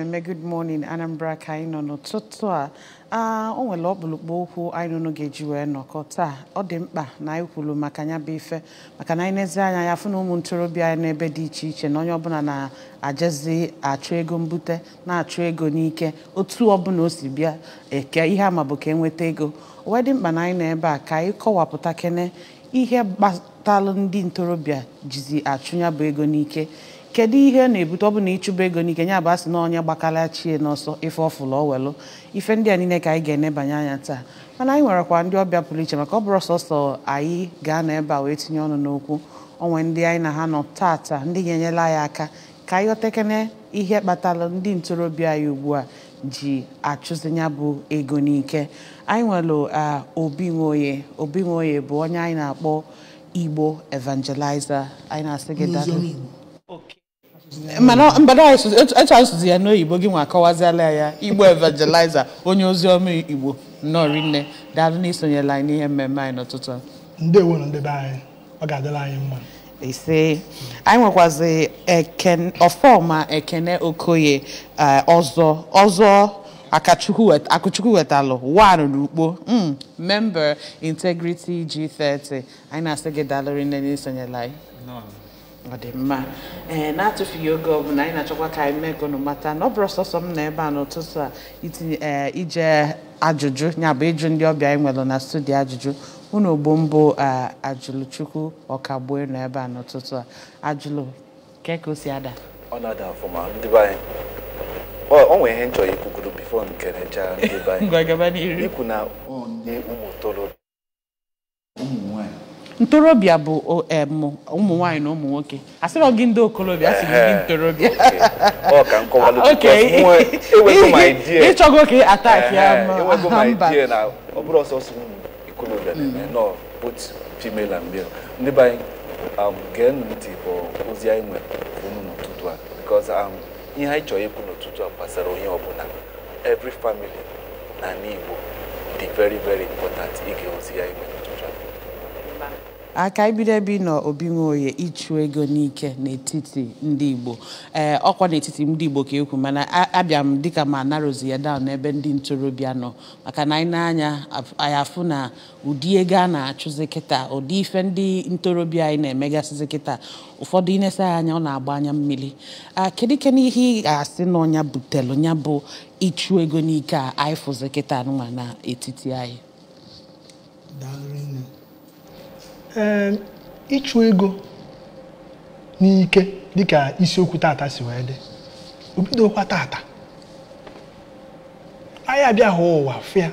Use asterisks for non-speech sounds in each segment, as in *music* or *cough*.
mmemme good morning Anambra ka anyị nọ n'ụtụtụ a o nwere ọkpụlụkpụ okwu anyị nụnụ ga-eji wee nọkọ taa ọ dị mkpa na anyị kwuru maka ya bụ ife maka na anyị n'ezi anya ya fụ na ụmụ ntorobịa anyị n'ebe dị iche iche na onye ọbụla na-ajezi achụ ego mbute na-achụ ego n'ike otu ọbụla o si bịa eke ihe ama bụ ka enweta ego wee dị mkpa na anyị nọ ebe a ka anyị kọwapụta kene ihe gbatalụ ndị ntorobịa jizi achụ ya bụ ego n'ike kedu ihe na-ebute ọ bụ na ịchụba ego n'ike nya bụ asị na onye gbakala chie n'ọsọ ife ọfụlụ ọwelụ ife ndị a niile ka anyị ga-enebanye anya taa mana anyị nwerekwa ndị ọbịa pụrụ iche maka ọ bụrụ sọsọ anyị ga-anọ ebe a wee tinye ọnụ n'okwu onwe ndị anyị na ha nọ taata ndị ga-enyela anyị aka ka anyị otekere ihe kpatara ndị ntorobịa anyị ugbu a ji achụzinya bụ ego n'ike anyị nwere Obi Nwoye Obi Nwoye bụ onye anyị na-akpọ Igbo evangelizer anyị na-asị gị Okay. mana etu asụsụ ya n'oyibo gị nwa akọwaziala ya igbo evangelizer onye ozi ọma igbo nnọọ nne daalụ na isonyela anyị n'ihe mmemme anyị n'ụtụtụ ndewo na ndebe anyị ọ ga-adịla anyị mma ise anyị nwekwazi ọfọma ekene okoye e, ọzọ ọzọ akụchukwu wetalụ wan n'ukpo hmm, member integrity g30 anyị na-asị gị daalụ nne na isonyela anyị ọ dị mma ee eh, na-atụfughị oge ọbụla anyị na-achọkwa ka anyị mee ka unu mata na ọ bụrụ sọsọ m na ebe a n'ụtụtụ a itinye eh, ije ajụjụ ya bụ ịjụ ndị ọbịa anyị nwere na studio ajụjụ unu ogbo mbụ eh, ajụlụchukwu ọkagbuo nọ ebe a n'ụtụtụ a ajụlụ ke ka o si ada ọ na-ada ọfụma ndị be anyị o nwere ihe nchọrọ ikwugoro bifo nkerecha ndị be anyị *laughs* ikwu na onye ụmụ torobịa ntorobịa bụ e, ụmụ nwaanyị na ụmụ nwoke asịrọ gị ndị okorobịa asị gị ntorobịa *laughs* e *laughs* ịchọgo ka ị atak ya e mba mm. ndị be anyị um, gee ntị bụ ozi anyị nwere unu n'ụtụtụ a because um, ihe anyị chọrọ ikwu n'ụtụtụ a gbasara onye ọbụla every family na n'Igbo dị very very important ige ozi anyị nwere aka ibido ebe na nọ obi ịchụ ego n'ike n'etiti ndị Igbo ee eh, ọkwa n'etiti ndị Igbo ka ekwu mana abịa m dịka ma narozi ya down n'ebe ndị ntorobịa nọ maka na anyị nanya anyị afụ na ụdị ego a na-achụzi kịta ụdị ife ndị ntorobịa anyị na-emegasịzi kịta ụfọdụ inesa ya anya ọ na-agba anya mmiri ah, kedu ike n'ihe ị ga-asị na ọnya butelu nya bụ ịchụ ego n'ike a anyị fụzi kịta nwa n'etiti anyị ee ịchụ ego n'ike dịka isiokwu tata si wee dị obidokwa tata anyị abịa hụ ụwa fịa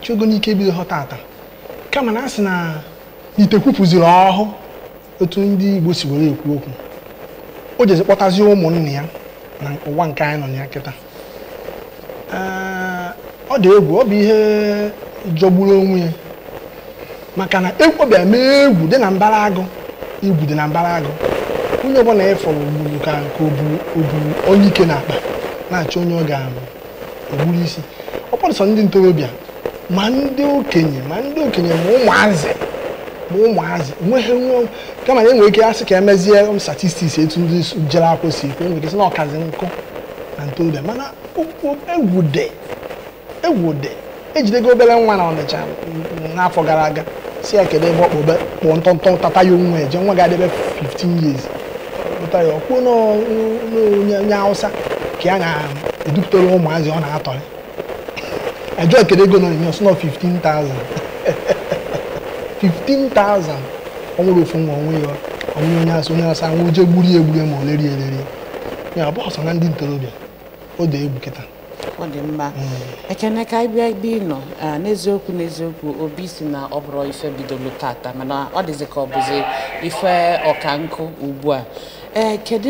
ịchụ ego n'ike ebido ha tata kama na a sị na ite kwupụziri ọhụụ otu ndị Igbo si were ekwu okwu o jezi kpọtazie ụmụnne ya na ụwa nke anyị nọ na ya kịta ọ dị egwu ọ bụ ihe jọgburu onwe ya maka na ekwobi eme egwu dị na mbara agụ igwu dị na mbara agụ onye ọbụla ịfọ gburu ka nke oburu onye ike na akpa na-achọ onye ọ ga-egburu isi ọkpọrọsọ ndị ntorobịa ma ndị okenye ma ndị okenye ma ụmụazị ma ụmụazị nweghị nwe kama na enwere ike asị ka emezie statistiks etu ndị jere akwụ si ekwu enwere ike na ọkazi nkụ na ntorobịa mana egwu dị egwu dị ejidego obere nwa na ọnịcha n'afọ gara aga si ya kedu ebe ọkpọbe kpụọ ntọntọ tata ya onwe eje nwa ga-adebe 15 years pụta ya ọkpụ n'onye awụsa ka ya na-edupụtara ụmụazị ọ na-atọrị ajọ kedu ego n'onyinye ọsọ nọ 15,000 15,000 ọ nwere ofu nwa onwe ya onwe onye asị onye asị anwụ je gburu egburu ma o lerie elerie ya ọ bụ na ndị ntorobịa o dee egwu kịta ọ dị mma ekene ka anyị bịa ebe nọ n'eziokwu n'eziokwu obi si na ọ bụrụ ife bidoro tata mana ọ dịzị ka ọ bụzi ife ọka nkụ ugbu a ee eh, kedu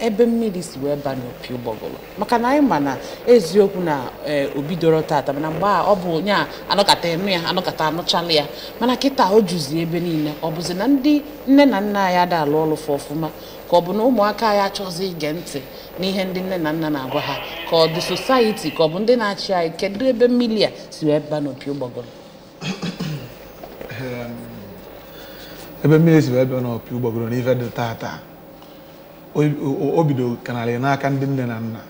ebe mmiri si wee ba n'opi ụgbọgụrụ maka na anyị ma na eziokwu na eh, doro tata mana mgbe ọ bụ onye a anọkata enu ya anọkata anụchala ya mana kịta o juzi ebe niile ọ bụzi na ndị nne na nna anyị ada alụ ọlụfụ ọfụma ka ọ bụ na ụmụaka ya achọzi ige ntị n'ihe ndị nne na nna na-agwa ha ka ọ dị sosaiti ka ọ bụ ndị na-achị anyị kedu ebe mmiri a si wee ba n'opi ụgbọgụrụ ehm, ebe mmiri si wee ba n'opi ụgbọgụrụ n'ife dị tata o bido kanarị n'aka ndị nne na nna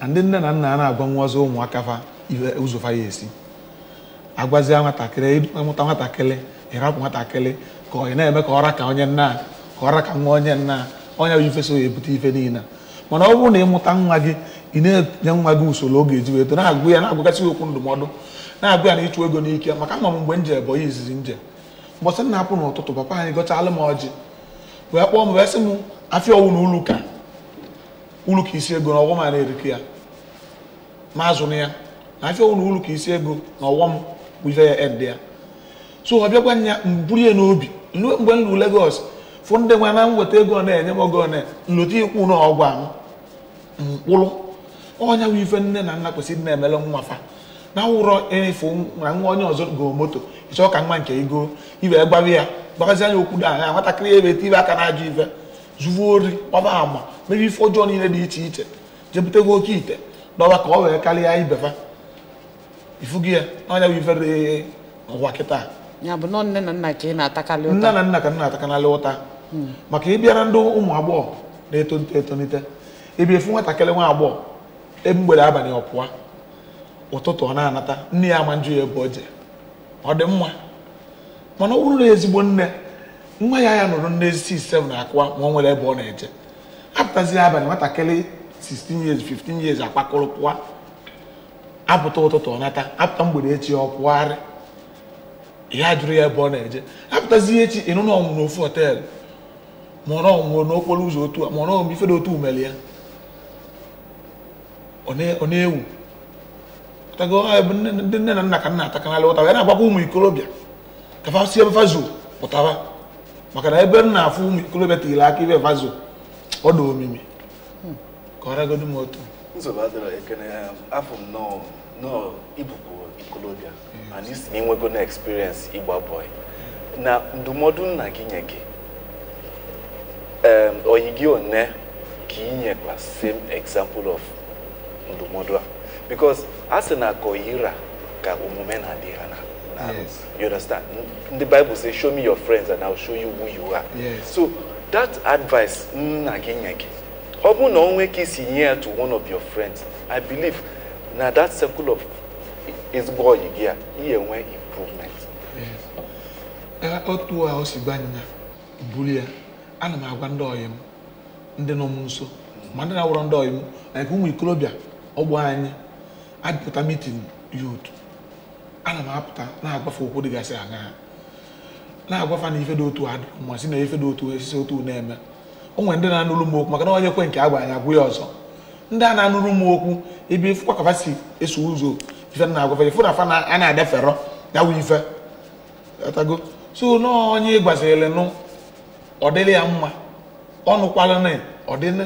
na ndị nne na nna a na-agwa nwazi ụmụaka fa ụzọ fa ya esi agwazie nwatakịrị ịmụta nwatakịrị ịrapụ nwatakịrị ka ọ na-eme ka ọra ka onye nna ka ọra ka nwa onye nna onye bụ ife ya ebute ife niile mana ọ bụrụ na ịmụta nwa gị ị na-enye nwa gị usoro oge eji weto na-agụ ya na-agụgasị okwu ndụmọdụ na-agụ ya na ịchụ ego n'ike maka nọ m mgbe nje bụ izizi nje mbọsị na-apụ n'ụtụtụ papa anyị gọchalụ m ọjị wee kpọọ m wee sị m afịa ọwụ na uluka uluka isi ego na ọgwọ m a na-erikọ ya ma azụ na ya na afịa ọwụ na uluka isi ego na ọwọ m bụjire ya ed ya so ọ bịakwa nya mburu ya n'obi mgbe m lu Lagos fụ ndị nwa na nweta ego na-enye m ogo na nlota ikwu na ọgwụ ahụ mkpụrụ ọnya bụ ife nne na nna kwesịrị na-emele nwa fa na ụrọ efu na nwa onye ọzọ goo moto ịchọọ ka nwa nke ego iwe gbawa ya gbagazi anya okwu da anya nwatakịrị ebe tibe aka na-ajụ ife zuvu ori gbaba ama mere ife ọjọọ niile dị iche iche jepụtago oke ite n'ọba ka ọ wee karịa ibefa ifugi ya na bụ ife ree ụwa kịta nne na nna ka ị na-atakarị ụta hmm. maka ịbịara ndị ụmụ agbọghọ na-etonite etonite ebe efu nwatakịrị nwa agbọghọ mgbede abalị ọpụwa ụtụtụ ọ na-anata nne ya ama njụ ya ebe o je ọ dị mma mana ọ bụrụ na ezigbo nne nwa ya ya nụrụ nne isi ise na akụwa ma ọ nwere ebe ọ na-eje apụtazi abalị nwatakịrị 16 years 15 years akpakọrọ pụa apụta ụtụtụ ọ nata apụta mgbede echi ọ pụgharị ya jụrụ ya ebe ọ na-eje apụtazi echi ịnụ na n'ofu họteelụ ma ọ ọnwụrụ n'okporo ụzọ otu a ma ọ ọmụ ife dị otu umere ọ na-ewu tego ndị nne na nna ka nna atakanala ụtawa ya na-agbakwa ụmụ ikorobịa kafa sie vazo pụtaba maka na ebe m na-afụ ụmụ ikorobịa tinyere aka ibe vazo ọ dị omimi ka ọ ragodo m otu nsogbu adịrọ ekene afọ m nọọ ịbụkwu ikorobịa mana isi na inwego na eksperiensị ịgba bọị na ndụmọdụ nna gị nye gị oyi gị one ka inyekwa same example of ndụmọdụ a because a sị ka omume na-adị ha na you understand the bible say show me your friends and i'll show you who you are yes. so that advice mm, nna gị nye gị ọ bụrụ na onwe ka isi nye ya to one of your friends i believe na that circle of ezigbo ọyị gị a ihe nwe improvement otu a o si gwa anyịnya buru ya ana m agwa ndị ọyị m ndị nọ m nso ma ndị na-awụrọ ndị ọyị m na ụmụ ikorobịa ọgbọ anyị adịpụta mitin yut ana m apụta na-agbafe okwu dịgasị aṅaa na-agwafa na ife dị otu adụ ma si na ife dị otu esisi otu na-eme o nwere ndị na-anụrụ m okwu maka na onye kwe nke agwa anyị agwụ ya ọzọ ndị a na-anụrụ m okwu ebe ifụkwa kafa si eso ụzọ ife na-agwafa ifu na fa a na-adefero ya wụ ife atago so na onye gbazirịlị nụ ọ dịrị ya mma ọ nụkwala na ọ dịnị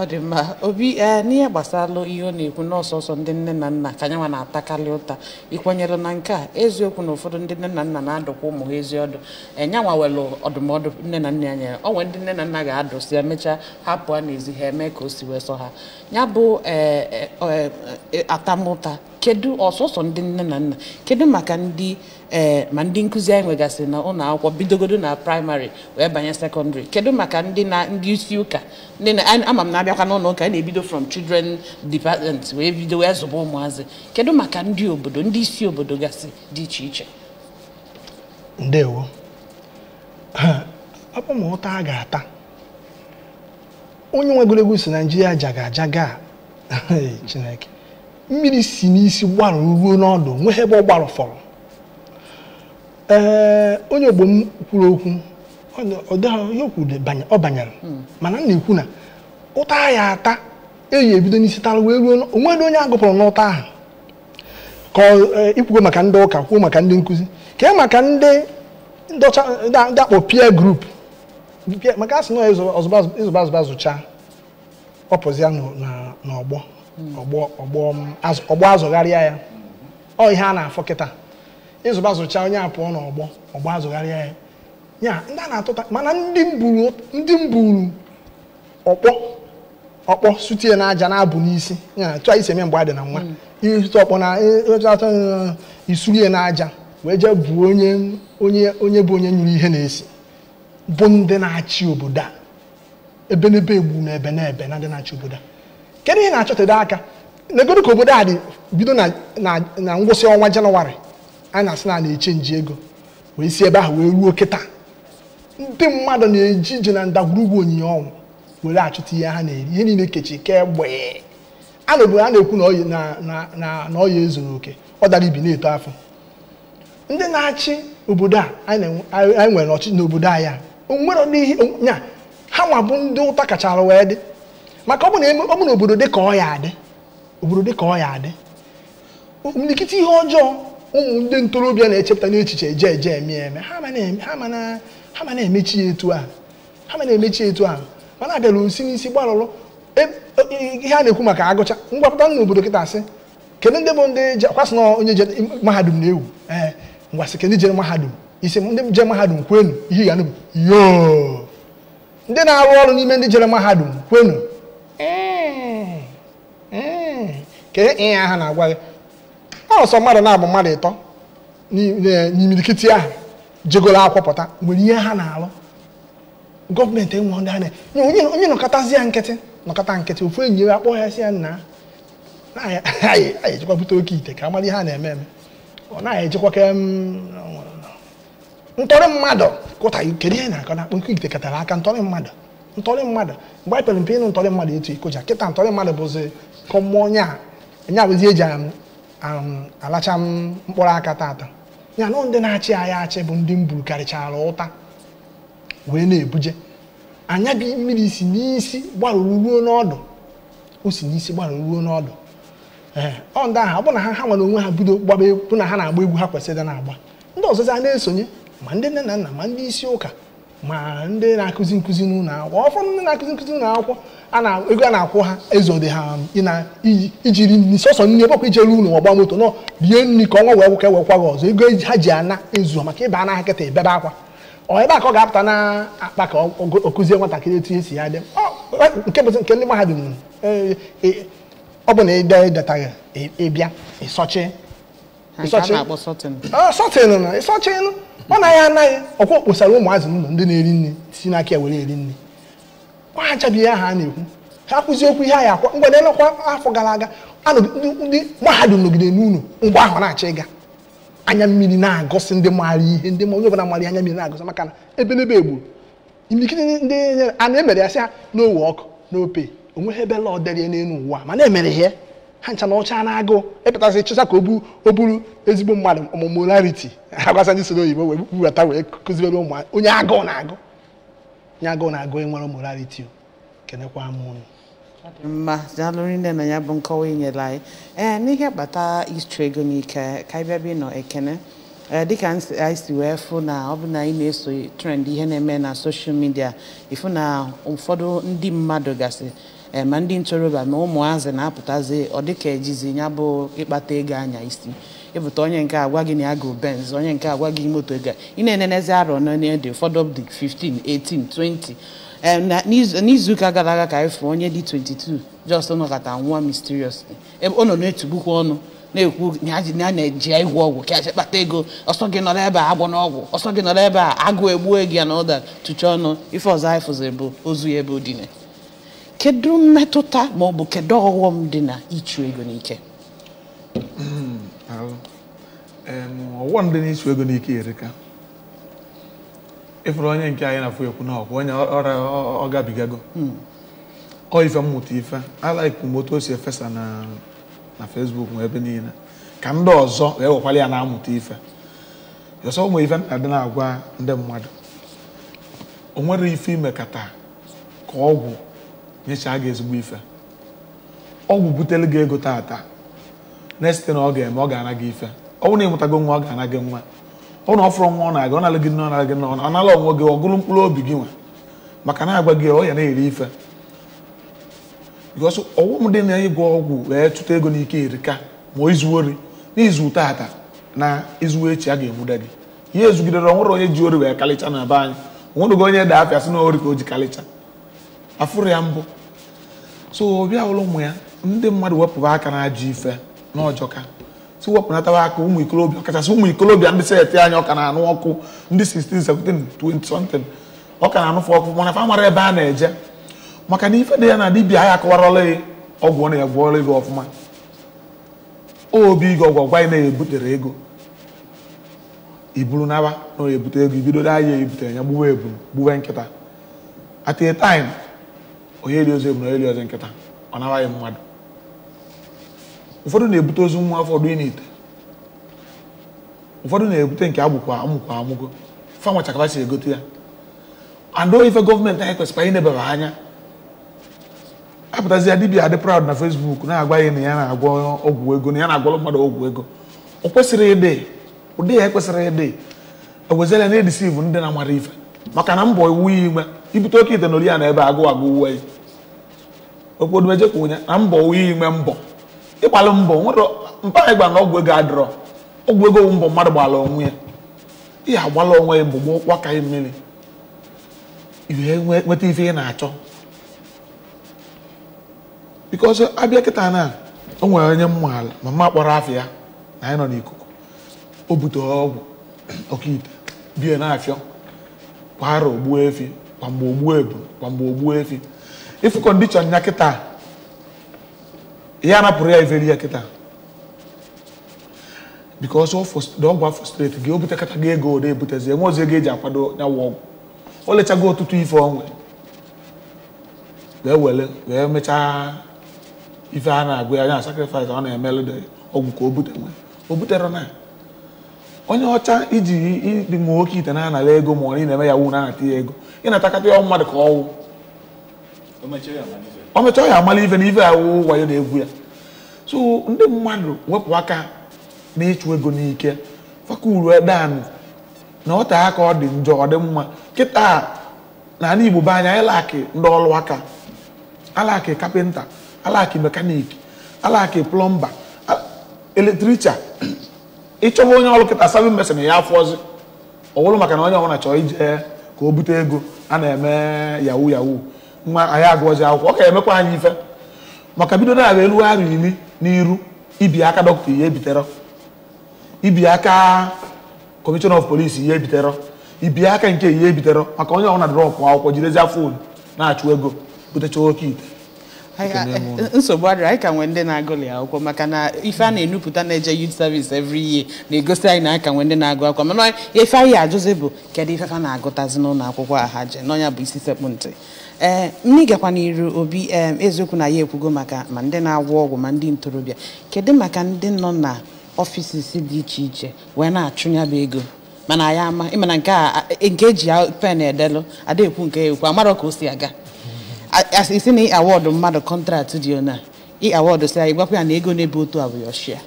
ọ dị mma obi e, n'ihe gbasara ihe ọ na-ekwu n'ọsọsọ ndị nne na nna ka anyị na-atakarị ụta ịkwanyere na nke a eziokwu na ụfọdụ ndị nne na nna na-adụkwa ụmụ ha ezi ọdụ enyanwa nwere ọdụmọdụ nne na nna anya o nwere ndị nne na nna ga-adụsi emechaa hapụ a n'ezi ha eme ka o si wee sọ ha ya bụ e, e, atamụta kedu ọsọsọ ndị nne na nna kedu maka ndị ee eh, ma ndị nkụzi anyị nwegasịrị na ụlọ akwụkwọ bidogodo na praịmarị wee banye sekọndịrị kedu maka ndị na ndị isi ụka ndị na ama m na-abịakwa n'ụlọ ụka a na-ebido from children department wee bido wee zụba ụmụazị kedu maka ndị obodo ndị isi obodo gasị dị iche iche ndewo ọ a onye nwe egwuregwu si naijiria jaga ajaga *laughs* chineke mmiri si n'isi gbarụ ruo n'ọdụ nwee ebe ọ gbarụ fọrọ onye ogbo kwuru okwu ọ banyere hmm. mana m na-ekwu na ụta ya ata eyi ebido n'isi tara wee ruo onwedị onye agụpụrụ n'ụta ahụ ka e, ikwugo maka ndị ụka kwuo maka ndị nkụzi kee maka ndị akpọ peer group maka asị na zụcha ọpụzia n'ọgbọ ọgbọ azụgharịa ya ọ ihe a na-afọ kịta ịzụba zụcha onye a pụọ n'ọgbọ ọgbọ azụgharịa ya ya ndị a na-atụta mana ndị mburu ọkpọ ọkpọ sutie na aja na-abụ n'isi ya tụọ isi eme mgbe a dị na nwa hmm. ịtụ ọkpọ na ịtụtụ isurie na aja wee jee bụ onye onye onye bụ onye nyụrụ ihe na-esi bụ ndị na-achị obodo a ebe n'ebe egbu na ebe na ebe na ndị na-achị obodo a kedu ihe na-achọtado aka n'egodo ka obodo a dị bido na ngwụsị ọnwa janụwarị a na-asị na na-eche nji ego wee si ebe ahụ wee ruo kịta ndị mmadụ na-eji ije na ndagwurugwu onyinye ọnwụ were achụta ihe ha na-eri ihe niile kechi kemgbe a na a na-ekwu na ọya ezuru oke ọ dara ibi na-eto afọ ndị na-achị obodo a anyị nwere ọchịchị n'obodo anyị a onwere n'ihi nya ha nwa bụ ndị ụta kachara wee dị maka ọ bụ na obodo dịka ọ ya adị obodo dịka ọ ya adị imilikiti ihe ọjọọ ụmụ ndị ntorobịa na-echepụta n'echiche eje eje eme eme ha ma na-emechi etu ahụ ha ma na-emechi etu ahụ mana abịala osi n'isi gbarụrụ e, e, ihe a na-ekwu maka agụcha ngwapụta na obodo kịta asị kedu ndị bụ ndị kwasị na onye je mahadum na-ewu ee ngwasị kedu jere mahadum isi ndị je mahadum kwenu ihe ga na bụ yoo ndị na-arụ ọrụ n'ime ndị jere mahadum kwenu Eh, eh. kedu ịnya ahụ na-agwa gị ọsọ mmadụ na-abụ mmadụ ịtọ e, n'imirikiti ahụ jegoro akwọpụta nwere ihe ha na-alụ gọọmenti enwe ndị a na onye nọkọtazi ya nkịtị nọkọta nkịtị ofu enyi ya akpọ ya si ya nna anyị *laughs* ejikwa bute oke ite ka amara ihe a na-eme eme ọ naghị ejikwa ke ntọrị mmadụ kụta kedu ihe na-akọ na akpọ oke ite katara aka ntọrị mmadụ ntọrị mmadụ mgbe anyị pere mpe ịnụ ntọrị mmadụ etu ikoja kịta ntọrị mmadụ bụzi ka onye a nya bụzi eji um, um, alacha um, mkpụrụ aka tata ya nọ ndị na-achị agha achị bụ ndị mburu karịchara ụta wee na-ebuje anya gị mmiri si n'isi gbarụrụ ruo n'ọdụ o si n'isi gbarụrụ ruo n'ọdụ ee ọ ndị ahụ ọ bụ na ha ha nwere onwe ha bido gbaba bụ na ha na-agba egwu ha kwesịrị na-agba ndị ọzọzi na-esonye ma ndị nne na nna ma ndị isi ụka ma ndị na-akụzi nkụzi n'ụlọ akwụkwọ ọfọdụ ndị na-akụzi nkụzi n'ụlọ akwụkwọ ego a na-akwụ ha ezode ha ijiri nri sọsọ nri ebe ijere ụlọ ọgba moto nọ rie nri ka ọnwa wee nwụka ewekwa gị ọzọ ego e ha ji ana ezu maka ịba anaghị kịta ebebe akwa ọ ebe a ka ọ ga-apụta na akpa ka ọ kụzie nwatakịrị etu esi ya dị e, nke nke ndị mahadum e, ọ bụ na ịdetaghị ịbịa ịsọchi ọ naghị ya anaghị ọkwa kposara ụmụazị ụlọ ndị na-eri nri si n'aka ya were eri nri ọ ha achabighị aha a na-ekwu ha kwụzi okwu ihe a ya akwa mgbede nọkwa afọ gara aga ndị mahadum nọgide n'ụlọ mgbe ahụ na acha ịga anya mmiri na-agọsị ndị maara ihe ndị ma onye ọbụla anya mmiri na-agọsị maka na ebelebe egburu imikiri ndị a na-emere ya sị ha n'owe ọkụ n'ope onweghị ebe lọọ dere n'elu ụwa mana emere ihe ha ncha na ọcha na agụụ epụtasị chịcha ka o buru ezigbo mmadụ ọmụmụ rarity ha gwasa ndị soro oyibo wee buwata wee kụziere ụmụ onye agụụ na-agụ onye agụụ na-agụ enwere morality kenekwa m unu mma daalụrụ nne na ya bụ nkọwa inyere anyị ee n'ihe kpata istri ego n'ike ka anyị bịaba ịnọ ekene dịka anyị si wee fụ na ọ bụ na anyị na-eso trend ihe na-eme na soshal midia ịfụ na ụfọdụ ndị mmadụ gasị e, ma ndị ntorobịa ma ụmụazị na-apụtazi ọ dịka ejizi ya bụ ịkpata ego anya isi ebute onye nke agwa gị na agụ benz onye nke agwa gị moto ga ị na-enenezi arọ dị ụfọdụ dị 15 18 20 n'izuụka gara aga ka anyị onye dị 22 just nọkọta nwa mysteriously ebe ọ nọ na-etugbukwa ọnụ na-ekwu na a na-eji ịgwọ ọgwụ ka kpata ego ọsọ gị nọrọ ebe a agwọ n'ọgwụ ọsọ gị nọrọ ebe a agụ egbuo gị ya na ụda tụcha ọnụ ife ọzọ anyị fụziri bụ ozu ya ebe o kedu mmetụta ma ọ bụ kedu ọghọm dị na ịchụ ego n'ike ndị dị n'ichu ego n'ike erika ịfụrụ onye nke anyị na-afụ ekwu na ọkwa onye ọrịa ọ gabigago hmm. ọ ife mmụta ife alaikwu m o si efesa na Facebook nwe ebe niile ka ndị ọzọ wee wekwara ya na-amụta ife ọsọ ụmụ ife na-adị na-agwa ndị mmadụ o nwere ife imekata ka ọgwụ nyechaa gị ezigbo ife ọgwụ butere gị ego taata na-esite na ọ ga-eme ọ ga-ana gị ife ọnwụ na mụtago nwa ọ ga-ana gị nwa ụnụ ọfụrụ nwa ọ na-aga ọ na gị nne ọ na-alụ gị nne ọ nala ala onwe gị ọ mkpụrụ obi gị nwa maka na agwa gị ọ ya na-eri ife because ọghọm dị na ịgwọ ọgwụ wee chụta ego n'ike erika ma izu ori n'izu tata na izu echi a ga-emuda gị ihe ezugidere onwere onye ji ori wee kalịcha na be anyị onwere gị onye da afịa sị na ori ka o ji kalịcha afụrụ ya mbụ so ọbịa ụlọ ụmụ ya ndị mmadụ wepụba aka na ajụ ife n'ọjọka tiwepụnatawa aka ụmụ ikolobịa kachasị ụmụ ikolobịa ndị seti anyị ọka na-anụ ọkụ ndị 16 17 ọ ka na-anụfe ọkụ mana fa mara ebe a na-eje maka na ife dị ya na dibia ya akọwarọla ọgwụ ọ na-egwọrọ ego ọfụma obi gị ọgwụ ọgwa ị na-ebutere ego iburu naba na ebute ego ibido da ya ebutere ya gbuwe eburu gbuwe nkịta at a time onye eri ozo eburu onye eri nkịta ọ nabaghị mmadụ ụfọdụ na-ebute ozu nwa afọ dị n'ite ụfọdụ na-ebute nke agbụkwa amụkwa amụgo fanwa chakaba si egote ya andụ ife gọọmenti anyị anyị inebara anya apụtazia dibia adị praụd na fesbuk na-agwa ya na ya na-agwọ ọgwụ ego na ya na-agwọrọ mmadụ ọgwụ ego o kwesịrị ịdị ụdị ya ekwesịrị ịdị ewezela na edisivu ndị na-amara ife maka na mbọ iwu ya inwe ibute oke ite na ori ya na ebe agụ agụ uwe ya okpodumejekwa ụnya na mbọ uwe ya inwe mbọ ịgbalụ mbọ nwere mpara ịgba na ọgwụ ego adịrọ ọgwụ ego mbọ mmadụ gbala onwe ya ihe agbala onwe ya mbụ gbaa ka mmiri nweta ife ị na-achọ bikos abịa kịta na o nwere onye mma ala ma mma kpọrọ afọ ya na anyị nọ n'ikuku o butere ọgwụ ọkaite bie na-afịọ kwara ogbuo efi kwamgbe ogbuo ebu kwamgbe ogbuo efi ifu kọndishọn ya kịta ihe a napụrụ ya iveri ya kịta because ọgwụ frustrate gị o butekata gị ego ode ebutezi enwe ozi ego eji akwado ya ọgwụ o lechago ọtụtụ ife onwe wee were wee mechaa ife a na-agụ ya na sacrifice ọ na-emelụ ọgwụ ka o bute o butere na onye ọcha iji ịdị nwa nwoke ite na-anara ego ma ọ na ị na-eme ya wu na-anata ya ego ị na-atakata ya mmadụ ka ọnwụ ọ mecha ọ ya amala ife na ife wayo na-egwu ya so ndị mmadụ wepụ aka na ịchụ ego n'ike fakuru edan na ọta aka ọ dị njọ ọ dị mma kịta na ala Igbo be anya ịlaki ndị ọrụ aka alaki kapịnta alaki mekaniki alaki plọmba eletricha ịchọba onye ọrụ kịta sabin mesin ya afọzi ọ bụrụ maka na onye ọbụla chọọ ije ka o bute ego a na-eme yahoo yahoo nwa anyị agụọzi akwụkwọ ọ ga-emekwa anyị ife maka bido na-abụ elugharị iri n'iru ibi aka dọkịta ihe bitere ibi aka kọmishọn of polisi ihe bitere ibi aka nke ihe bitere maka onye ọbụla drọpụ akwụkwọ jirezi afọ na-achụ ego butecha oke ite eh, nsogbu adịrị anyị ka nwee ndị na-agụli akwụkwọ maka na ife a na-enupụta na-eje youth service evri year na-egosi anyị na anyị ka nwee ndị na-agụ akwụkwọ mana ife anyị ajụzi bụ kedu ife fa na-agụtazi n'ụlọ akwụkwọ a ha je n'ọnya bụ isi sekpụ ntị ee eh, ndị gakwa n'iru obi eziokwu na ya ekwugo maka ma ndị na-agwọ ọgwụ ma ndị ntorobịa kedu maka ndị nọ na ọfisis dị iche iche wee na-achụnyaba ego mana ya ama ịmana e, nke eji pen edelụ adaekwu nke ekwu amara ka o si aga isi na awọdụ mmadụ kọntrat dị ona ị si anyị gwakwa ya na ego na otu a bụ yoshia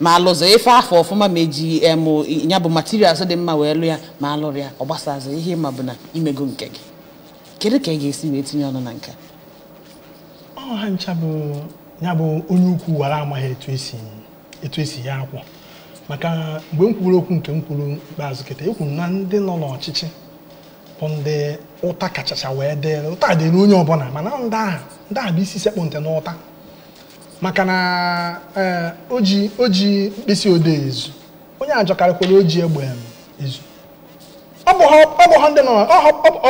ma alụzọ ife afọ ọfụma ma eji emụ ya bụ materials dị mma wee lụ ya ma alụrụ ya ọ gbasazụ ihe ịma bụ na imego nke gị kedu ka ị ga-esi wee tinye ọnụ na nke ọha ncha bụ ya bụ onye ukwu wara amaghị etu esi etu esi ya akwụ maka mgbe m okwu nke m kwuru ikpeazụ kịta ekwuru na ndị nọ n'ọchịchị bụ ndị ụta kachacha wee dịrị ụta dịrị onye ọbụla mana ndị aha ndị aha bụ isi sekpụ ntị n'ụta maka na eh, oji oji mkpịsị odee ezu onye ajọkarịkwara oji egbe ezu ọ bụ ha ndị nọ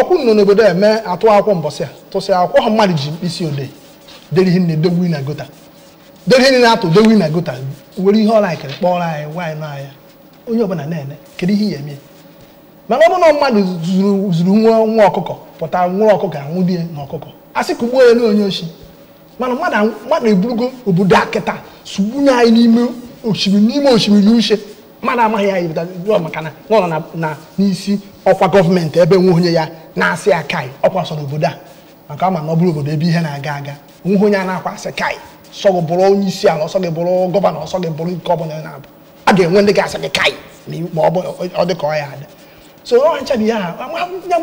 ọkwụ nọ n'obodo eme atụ akwụkwọ mbọsị a tụsị akwụkwọ ha mmadụ ji mkpịsị odee dere ihe na-edowe na gota dere ihe na-atụ dowe na gota were ihe ọla akịrị kpọrọ anyị nwaanyị nọ anya onye ọbụla na eme kedu ihe ya eme mana ọ bụ na mmadụ zuru nwa nwa ọkụkọ pụta nwa ọkụkọ anwụ di na ọkụkọ a sị ka ugbo ya na onye oshi mana mmadụ eburugo obodo akịta sugbunye anyị n'ime osimiri n'ime osimiri uche mmadụ amaghị ya ibidoro maka na ọ nọ n'isi ọkwa gọọmenti ebe nwe onye ya na-asị ya kai ọkwa sọ n'obodo a maka ama na ọ bụrụ obodo ebe ihe na-aga aga nwe onye a na-akwa asị kai sọ gị bụrụ onye isi ala ọsọ gị bụrụ gọvanọ ọsọ gị bụrụ nke ọbụla na-abụ a ga-enwe ndị ga-asị gị kai ma ọ dị ka ọ ya ada so ọ ncha bụ ihe ha ya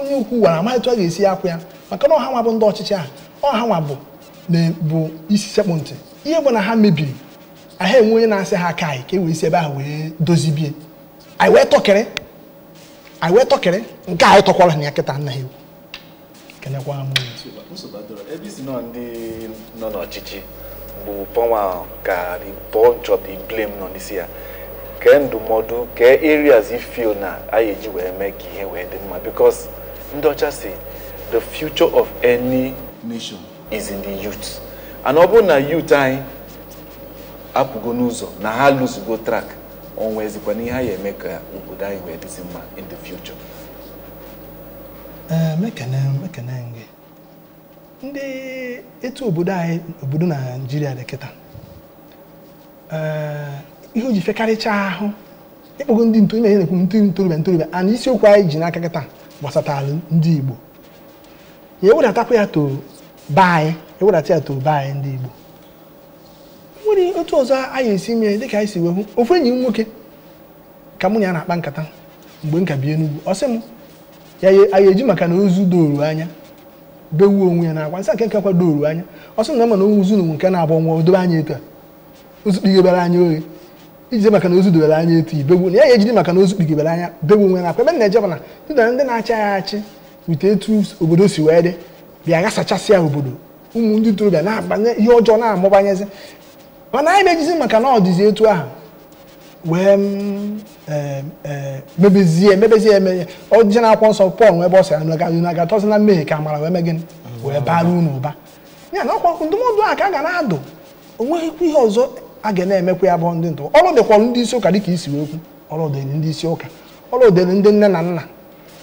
onye ukwu gwara amaghị etu a ga-esi akwụ ya maka na ọha nwa bụ ndị ọchịchị a ọha nwa bụ isi sekpụ ntị ihe bụ na ha mebiri aha enwe onye na-asị ha aka anyị ka e wee si ebe ahụ wee dozibie anyị wee tọkịrị anyị wee tọkịrị nke anyị tọkwara na ya kịta nna ha ewu kenekwa ha ebe isi nọ ndị nọ n'ọchịchị bụ pọnwa ka bọ nchọ bụ blame nọ n'isi ya kee ndụmọdụ kee areas ifio na anyị eji wee mee ka ihe wee dị mma because ndị ọcha si the future of any nation is in the youth and ọ bụrụ na youth anyị apụgo n'ụzọ na ha lụzugo trak onwezikwa na ihe a ya eme ka obodo anyị wee dịzi mma in the future eh, ndị etu obodo anyị obodo naijiria dị kịta eh, ihe o ji fekarịchaa ahụ ịkpọgo ndị ntorobịa na-ekwu ndị ntorobịa ntorobịa ana isiokwu anyị ji n'aka kịta gbasatara ndị igbo ya ewedatakwa ya to be anyị ewedata ya to be anyị ndị igbo nwere otu ọzọ anyị esi mee dịka anyị si wee hụ ofu enyi m nwoke ka mụ na ya na-akpa nkata mgbe m ka bi Enugu ọ sị m ya anyị eji maka na ozu doru anya bewuo onwe ya na-akwa nsa nke nke kwa doru anya ọ sị na mana onwe ozu na onwe nke na-agba nwa dobe anya etu a ozu kpigobere anya oghe iji maka na ozu dobere anya etu ibewu na ya ejide maka na ozu anya bewu onwe na-akwa ebe na-eje mana dịdara ndị na-achị ya achị wute etu obodo si wee dị bịa ghasachasị obodo ụmụ ndị ntorobịa na-abanye ihe ọjọọ na-amụbanyezi mana anyị na maka na ọ dịzi etu ahụ wee mm, e, e, mebezie emebezie emeye ọjije na akwụkwọ nsọ pọl nwebe ọ sịra nagatọzi na mmehie ka amara wee megịnị wee bara unu ụba ya na ọkwa ndụmọdụ a ka a ga na-adụ onweghịkwa ihe ọzọ a ga na-emekwa ya bụ ndị ndụ ọrụ dịkwara ndị isi ụka dịka isi okwu ọrụ dịrị ndị isi ụka ọrụ dịrị ndị nne na nna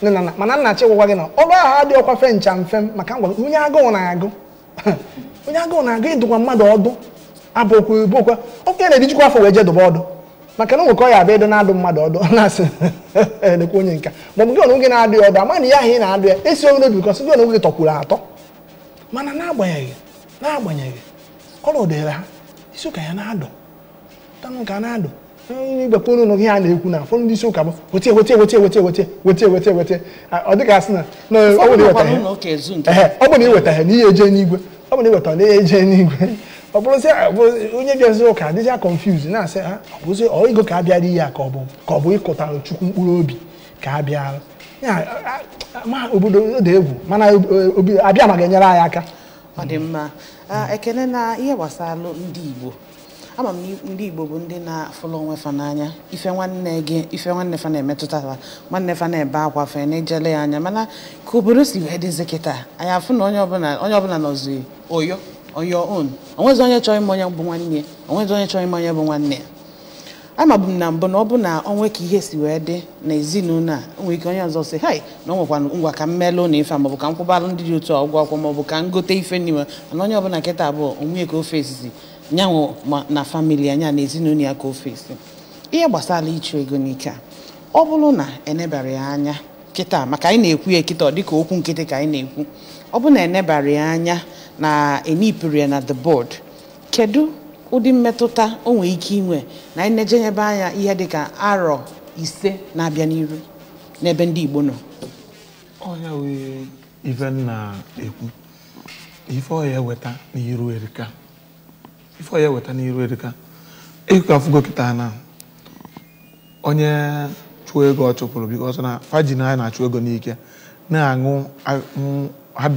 nne na nna mana nna chịgwụkwa gị na ọrụ ahụ adịghị ọkwa fe ncha mfe maka ngwa onye agụụ na-agụ *laughs* onye agụụ na-agụ ịdụkwa mmadụ ọdụ abụkwa ibokwa okenye na-ejikwa afọ wee jedụba ọdụ maka na nwekọ ya abịa ịdị na-adụ mmadụ ọdụ na-asị elekwa onye nka ma ọ bụ gị ọnụ gị na-adụ ya ọdụ ama na ya ahụ ị na-adụ ya esi onwe n'obi kọsị gị ọnụ gị tọkwuru atọ mana n'agbanyeghị n'agbanyeghị ọrụ dịrị ha isi ụka ya na-adụ tanụ ka na-adụ igbekpere ụlọ gị ha na-ekwu na ụfọdụ ndị isi ụka bụ wetie wetie wetie wetie wetie wetie wetie wetie ọ dịka asị na ọ bụ na iweta ha na ihe eje n'igwe ọ bụ na iweta na ihe eje n'igwe ọ bụrụ sị onye bịaziri ụka adịcha confuse na-asị ha ọ bụrụ ego ka abịara ihe a ka ọ bụ ka ọ bụ ịkụtara chukwu mkpụrụ obi ka abịara uh, uh, ma obodo dị egwu mana uh, abịa ma ga-enyere anyị aka ọ dị mma ekene na ihe gbasara ndị Igbo ama m ndị Igbo bụ ndị na-afụlụ onwe fa n'anya ife nwanne gị ife nwanne fa na-emetụtara nwanne fa na-ebe akwa fe na-ejele ya anya mana ka obodo si wee dịzị kịta anyị afụ na onye ọbụla onye ọbụla nọzi oyo on your own onye chọrọ ịma onye bụ nwanne onwezi onye chọrọ ịma onye bụ nwanne ya amabu m na mbụ na ọ bụ na onwe ka ihe si wee dị na ezinụlọ a nwere ike onye ọzọ si hai na ọ ngwa ka m melụ na ife a maọbụ ka m kwụbara ndị dị otu a ụgwọ akwụkwọ maọbụ ka m gote ife n'ime mana onye ọbụla nkịta abụọ onwe ka ofe esizi nyanwụ na famili anya na ezinụlọ ya ka ofe esi ihe gbasara ịchụ ego n'ike a ọ bụrụ na enebara ya anya kịta maka anyị na-ekwu ya kịta ọ dịka okwu nkịtị ka anyị na-ekwu ọ bụ na enebara ya anya na enipụrụ na the board kedu ụdị mmetụta o nwere ike inwe na anyị na-ejenyebe anya ihe dịka arọ ise na-abịa n'iru n'ebe ndị Igbo nọ ọya wee ife na ekwu ife ọya eweta n'iru erika ife ọya eweta n'iru erika ịkọ afụgo kịta na onye chụọ ego ọ chụpụrụ bikọs na fajin anyị na-achụ ego n'ike na-aṅụ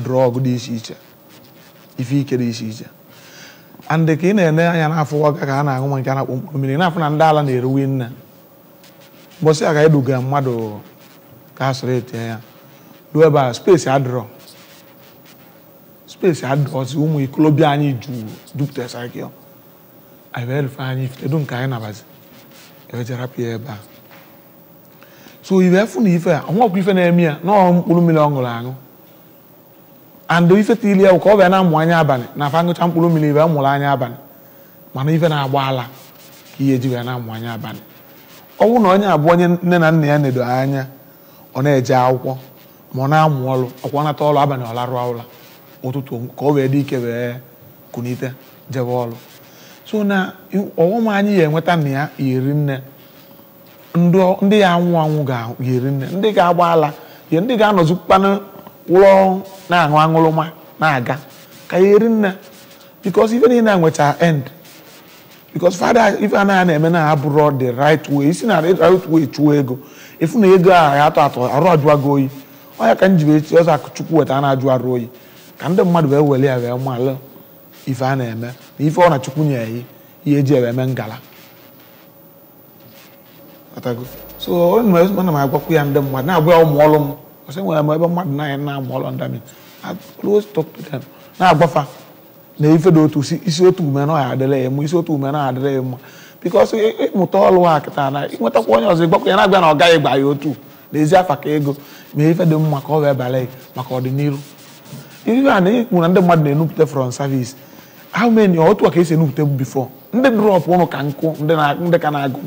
drọg dị iche iche ife ike dị iche iche andị ka ị na-ene anya n'afọ ọka ka a na-aṅụ ma nke a na-akpọ mkpụrụ mmiri na-afụ na ndị ala na-eruwe nne mbọsị a ka eduga mmadụ ka a sọrọ etinye ya ruo ebe a spesi adịrọ spesi adịrọzi ụmụ ikolobịa anyị jupụtasara gị efe anyị ifetedu nke anyị nabazi ewejara pịa ebe a so ibe fụ na ife a ọnwa ọkwa ife na-eme ya na mkpụrụ mmiri ọ ṅụrụ aṅụ and ifeta ili ya bụ ka ọ bịa na-amụ anya abalị na afa ngụcha mkpụrụ mmiri bịa mụrụ anya abalị mana ife na-agba ala ka ihe ji wee na-amụ anya abalị ọ bụrụ na onye abụọ onye nne na nna ya nedo anya ọ na-eje akwụkwọ ma ọ na-amụ ọrụ ọkwa nata ọrụ abalị ọ larụọ ụra ụtụtụ ka ọ wee dị ike wee kunite jebe ọrụ so na ọghọm anyị ya enweta na ya nne ndị ya anwụ anwụ ga-eri nne ndị ga-agba ala ihe ndị ga-anọzikwanụ wụlọ na-aṅụ aṅụrụma na-aga ka ya eri nna because ife niile nwecha end because fada ife a naghị na-eme na abụrụ the right way isi na right way chụọ ego ịfụ na ego a ya atọ atọ arụ ajụwago oyi ọ ya ka m ji wee chi ọzọ akụchukwu weta a na-ajụ arụ oyi ka ndị mmadụ wee were ya wee malụ ife a na-eme na ife ọ na chukwu nye ya ihe eji ewe eme ngala so ọ na m agwakwu ya ndị mmadụ na-agwa ya ụmụ ọrụ m sɛ wɔn ɛmɛ ɛbɛ mmadụ nan yɛn nam ɔlɔ nda mi i always talk to them na agbɔfa na ife do otu isi otu ume na ɔyɛ adịla ya mu isi otu ume na adịla ya mu because ịmụta ọlụ ha kịta na ịnwetakwa onye ọzọ ịgbakwa ya na-agba na ọ gaghị gba ya otu n'ezi afa ka ego ma ife dị mma ka ọ wee bala ya maka ọdịnihu ife a na ịhụ na ndị mmadụ na-enupụta from service how many otu a ka esi enupụta before ndị drọp ụnụ ka nkụ ndị ka na-agụ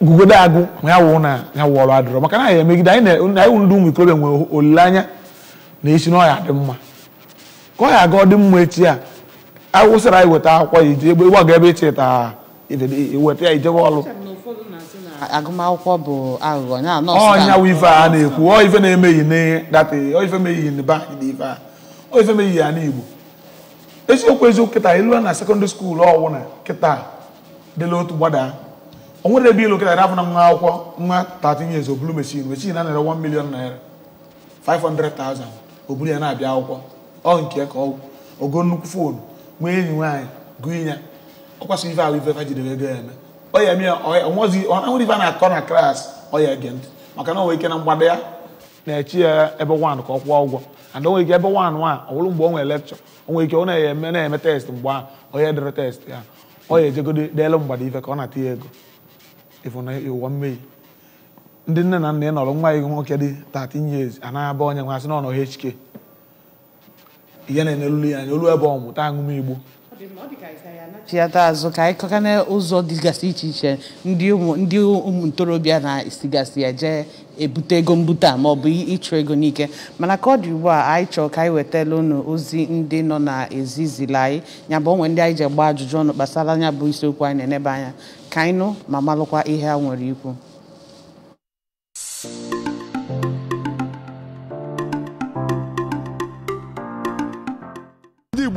gugode agụ ma ya wụ na ya wụ ọrụ adịrọ maka na anyị emegide anyị na anyị ndị ụmụ ikorobịa nwere olileanya na esi na dị mma ka ọ aga ọ dị mma echi a awụsara anyị weta akwụkwọ ya ije ịgbaga ebe icheta e iweta e e ya ijebe ọrụ agụmakwụkwọ bụ aghụghọ na ọnya wụ ife a na-ekwu ọ ife na-emeghị emeghi n'data ọ ife meghị n'ebe anyị na ife a ọ ife meghị ya na igbo eziokwu eziokwu kịta ịlụa na sekọndịrị skuulu ọwụ na kịta dịla otu gbada o nwere ebe ilu kịta afọ na nwa akwụkwọ nwa 13 years obulu machine machine na nara 1 million naira 500,000 ya na-abịa akwụkwọ ọ nke ka ogo nnukwu fon nwee enyi nwaanyị gụ ọkwasị ife ahụ ife fajidere e ego ya eme ọ ya mie ife a na-akọ na klas ọ ege ntị maka na o nwere ike na mgbada ya na-echi ya ebe wan ka ọ kwụọ ụgwọ and o nwere ike ebe wan nwa ọwụrụ mgbe nwere lekchọ ike ọ na-eme na-eme test mgbe ahụ test ya ọ ya ejegode mgbada ife ka ọ na-ata ya ego ndị nne na nna ị nọrọ nwa gị nwoke dị 13 years anaghị onye nwa asị na ọ nọ HK ihe na-enyelulu ya anya olu ebe ọ mụta aṅụm igbo chiata azụ ka anyị kọka n'ụzọ dịgasị iche iche ndị ụmụ ntorobịa na-esigasị ya jee ebute ego mbute a ma ịchụ ego n'ike mana ka ọ dị ugbu a anyị chọrọ ka anyị wetala unu ozi ndị nọ na ezizila anyị ya bụ onwe ndị anyị ji gba ajụjụ ọnụ gbasara anya bụ isiokwu anyị na-enebe anya ka anyị nụ ma malụkwa ihe ha nwere ikwu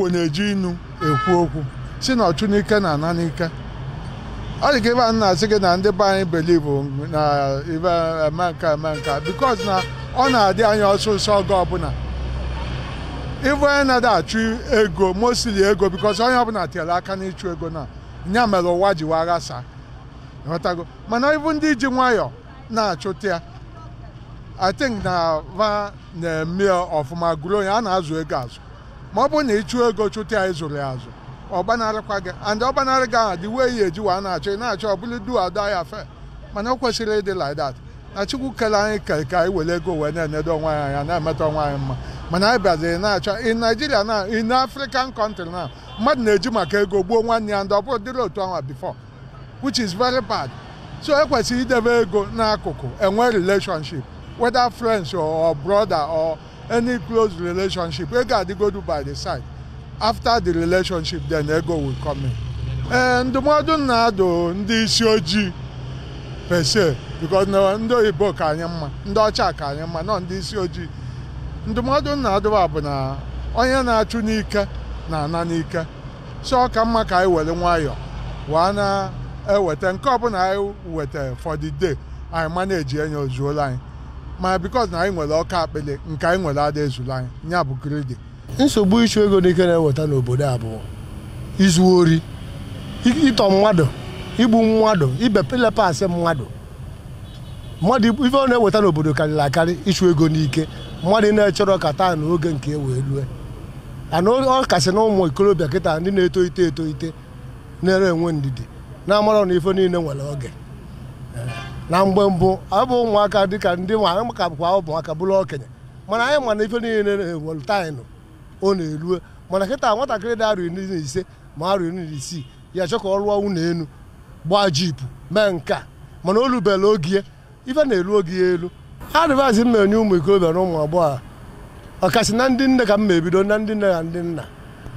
igbo na-eji inu ekwu okwu si na ọchunike na ana ọ dị ka ebe a na-asị gị na ndị be anyị belivu na ibe eme eme bikos na ọ na-adị anya ọsụsọ oge ọbụla ibu onye na-ada achụ ego mosili ego bikos onye ọbụla tiere aka n'ịchụ ego na nya mere ụwa ji wee ghasa ghọtago mana ibu ndị ji nwayọ na-achụta ya i na va na-eme ọfụma gụrụ onye a na-azụ ego azụ ma ọ bụrụ na ị chụọ ego chụta ya ịzụrụ ya azụ ọ gị and ọ gbanarị gị ahụ dị wee ya eji wa na-achọ ị na-achọ ọ bụrụ du ada ya fe mana ọ kwesịrị ịdị like that na chukwu kele anyị kere ka anyị were ego wee na-enedo onwe anyị anya na-emeta onwe anyị mma mana anyị ị na-achọ in Nigeria na in African country na mmadụ na-eji maka ego gbuo nwanne ya ndị ọ bụrụ dịrị otu ọnwa bifọ which is very bad so ekwesịrị idebe ego n'akụkụ enwe relationship whether friends or brother or any close relationship wey gadigodu by the side after the relationship then ego will come in. ee ndụmọdụ na-adụ ndị isi ojii pese because ndị oyibo ka anyị mma ndị ọcha ka anyị mma nọ ndị isi ojii ndụmọdụ na-adụba bụ na onye na-achụ n'ike na-ana n'ike so ọ ka mma ka anyị were nwayọọ wee na-eweta nke ọbụla anyị weta for the day anyị ma na-eji enye ozuola anyị ma because na anyị nwere ọka akpele nke anyị nwere ada ezuru anyị nya bụ kredit. nsogbu ịchụ ego n'ike na-eweta n'obodo abụọ izu ori ịtọ mmadụ igbu mmadụ ilepa asị mmadụ mmadụ ife ọ na-eweta n'obodo karịrị akarị ịchụ ego n'ike mmadụ na-echọrọ ka taa na oge nke e wee rue ana ọ kasị na ụmụ ikorobịa kịta ndị na-etolite etolite na-ere enwe ndidi na-amarọ na ife niile nwere oge na mgbe mbụ ọ bụ ụmụaka dịka ndị nwa anyị ụmụaka bụrụ okenye mana anyị mana ife niile na-ewelu ọ na eruo mana kịta nwatakịrị dị arọ na ise ma arọ iri na isii ya chọọ ka ọ rụọ nwunye elu gbaa jipu mee nka mana o rubela oge ife na-eru oge ya elu adịvaịsị m na-enye ụmụ ikorobịa na ụmụ agbọghọ ọkasị na ndị nne ka m ma ebido na ndị nne na ndị nna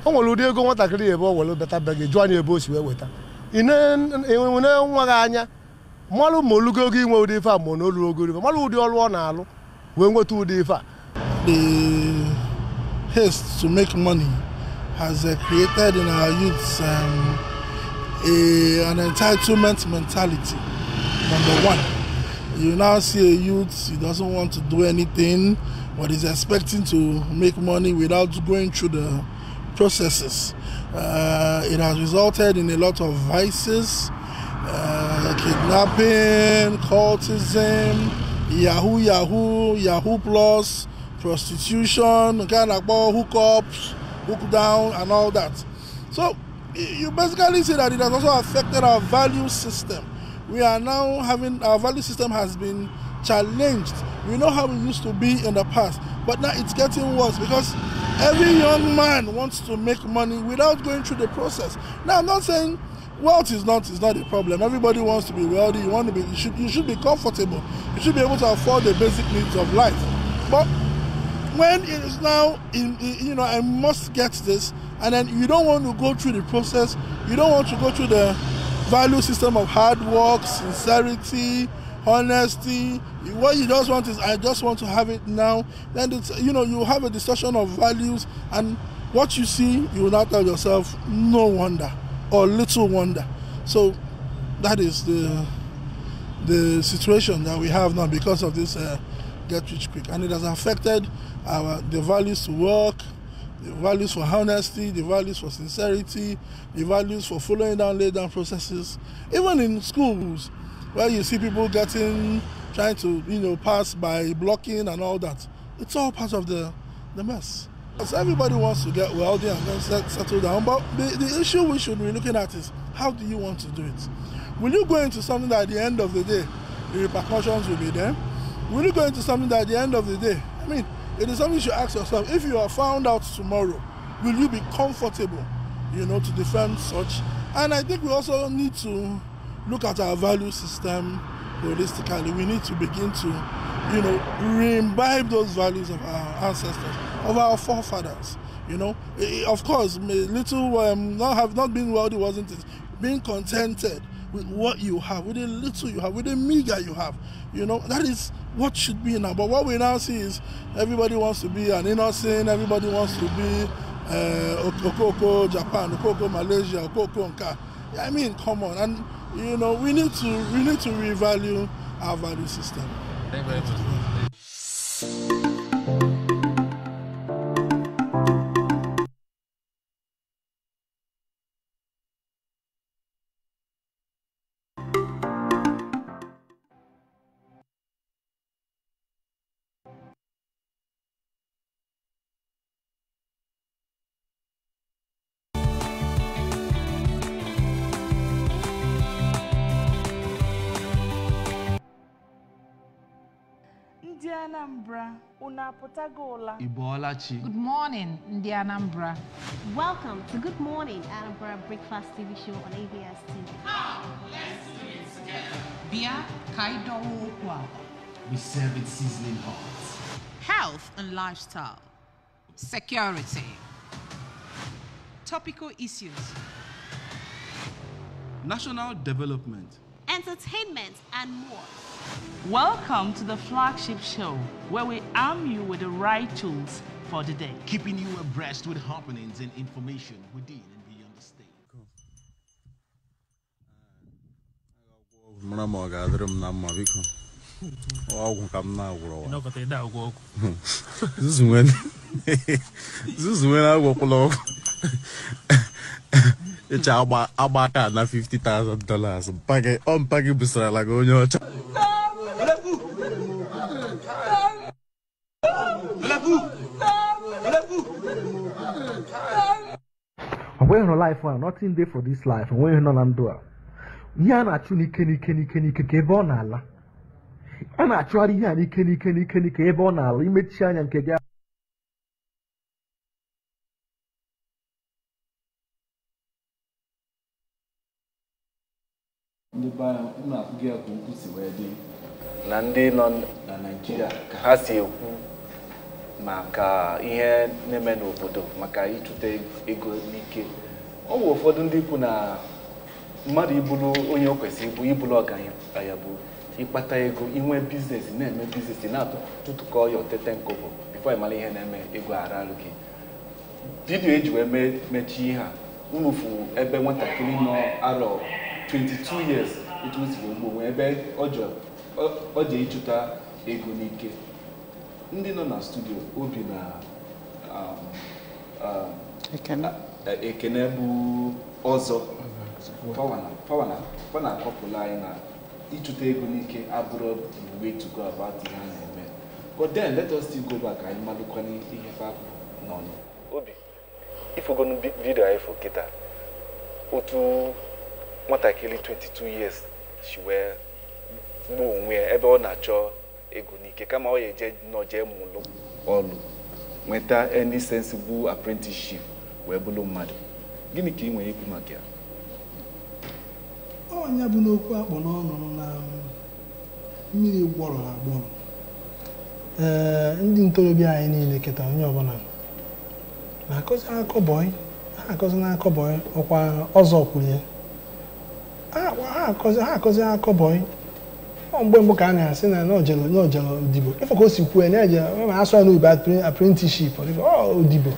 o nwere ụdị ego nwatakịrị ya ebe ọ were bata be gị jụọ anyị ebe o si wee weta ị na-enwe e nwa gị anya mmalụ ma olugo ogo inwe ụdị ife a ma na olugo ife mmalụ ụdị ọrụ ọ na-alụ wee nweta ụdị ife a the haste to make money has uh, created in our youths um, a, an entitlement mentality number one you now see a youth he doesn't want to do anything but he's expecting to make money without going through the processes. Uh, it has resulted in a lot of vices Uh, kidnapping, cultism, Yahoo, Yahoo, Yahoo Plus, prostitution, kind of hookups, hook down, and all that. So you basically see that it has also affected our value system. We are now having our value system has been challenged. We know how we used to be in the past, but now it's getting worse because every young man wants to make money without going through the process. Now, I'm not saying wealth is not is not a problem. Everybody wants to be wealthy. You want to be you should you should be comfortable. You should be able to afford the basic needs of life. But when it is now in, in, you know I must get this, and then you don't want to go through the process. You don't want to go through the value system of hard work, sincerity, honesty. What you just want is I just want to have it now. Then it's, you know you have a discussion of values and what you see. You will now tell yourself, no wonder. or little wonder. So that is the the situation that we have now because of this uh, get rich quick, and it has affected our the values to work, the values for honesty, the values for sincerity, the values for following down laid down processes. Even in schools, where you see people getting trying to you know pass by blocking and all that, it's all part of the the mess. So everybody wants to get wealthy and then settle down, but the, the issue we should be looking at is how do you want to do it? Will you go into something that at the end of the day, the repercussions will be there? Will you go into something that at the end of the day, I mean, it is something you should ask yourself, if you are found out tomorrow, will you be comfortable, you know, to defend such? And I think we also need to look at our value system holistically. We need to begin to, you know, re-imbibe those values of our ancestors of our forefathers. You know, of course, little um, not have not been wealthy wasn't it? Being contented with what you have, with the little you have, with the meager you have. You know, that is what should be now. But what we now see is everybody wants to be an innocent, everybody wants to be uh, Okoko Japan, Okoko Malaysia, Okoko Nka. I mean, come on. And, you know, we need to, we need to revalue our value system. Thank you very much. Anambra, Ibolachi. Good morning, the Anambra. Welcome to Good Morning Anambra Breakfast TV show on ABS TV. Come, let's do it together. Bia Kaidowo We serve it seasoned hot. Health and lifestyle. Security. Topical issues. National development. Entertainment and more. Welcome to the flagship show, where we arm you with the right tools for the day. Keeping you abreast with happenings and information within and beyond the state. This is when. ga ga-adịrị m na mma biko icha agba aka aka na 50,000 dollars ọ mpaghị gị busarala gị onye ọcha onweghị nọ life a nothing dey for this life onweghị nọ na ndụ a ihe a na-achụ n'ike n'ike n'ike n'ike ebe ọ na-ala a na-achụgharị ihe a n'ike n'ike n'ike n'ike ebe ọ na-ala imechi anya nke gị na wee dị na ndị nọ na Naịjirịa ka ha si ekwu maka ihe na-eme n'obodo maka ịchụta ego n'ike ọ bụ ụfọdụ ndị kwu na mmadụ ibulu onye o kwesịrị ịbụ ịbụrụ ọgaranya bụ ịkpata ego inwe biznes na-eme biznes na-atụtụkọ ya otete nkobo bifo ịmara ihe na-eme ego ararụ gị vidio eji wee mechie ihe a unu fụ ebe nwatakịrị nọ arọ 22 years etu o siri ugbo wee ebe ọ ji ịchụta ego n'ike ndị nọ na studio obi na um, um, e, ekene bụ ọzọ ọ na-akọpụla anyị na ịchụta ego n'ike abụrụ the way to go about na-eme but then let us still go back anyị malụkwana ihe fapụ n'ọnụ obi ifogonu vidiyo anyị fụ kịta otu nwatakịrị 22 years si wee gbuo onwe ya ebe ọ na-achọ ego n'ike kama ọ ya eje nọ jee mụlụ ọlụ nweta any sensible apprenticeship wee bụrụ mmadụ gịnị ka ị nwere ikwu maka ya ọnya bụ n'okwu akpọ n'ọnụ na um, mmiri gbọrọ agbọrọ ee ndị ntorobịa anyị niile keta onye ọbụla na-akọzi akọbọị ha akọzi n'akọbọị ọkwa ọzọ kwuru ya ha akọzi ha akọzi akọbọị mgbe mbụ ka a na-asị na n'ọjelo n'ọjelo odibo ife ka o si kwuo na-eje e ma asụ ya n'ubi aprentiship odibo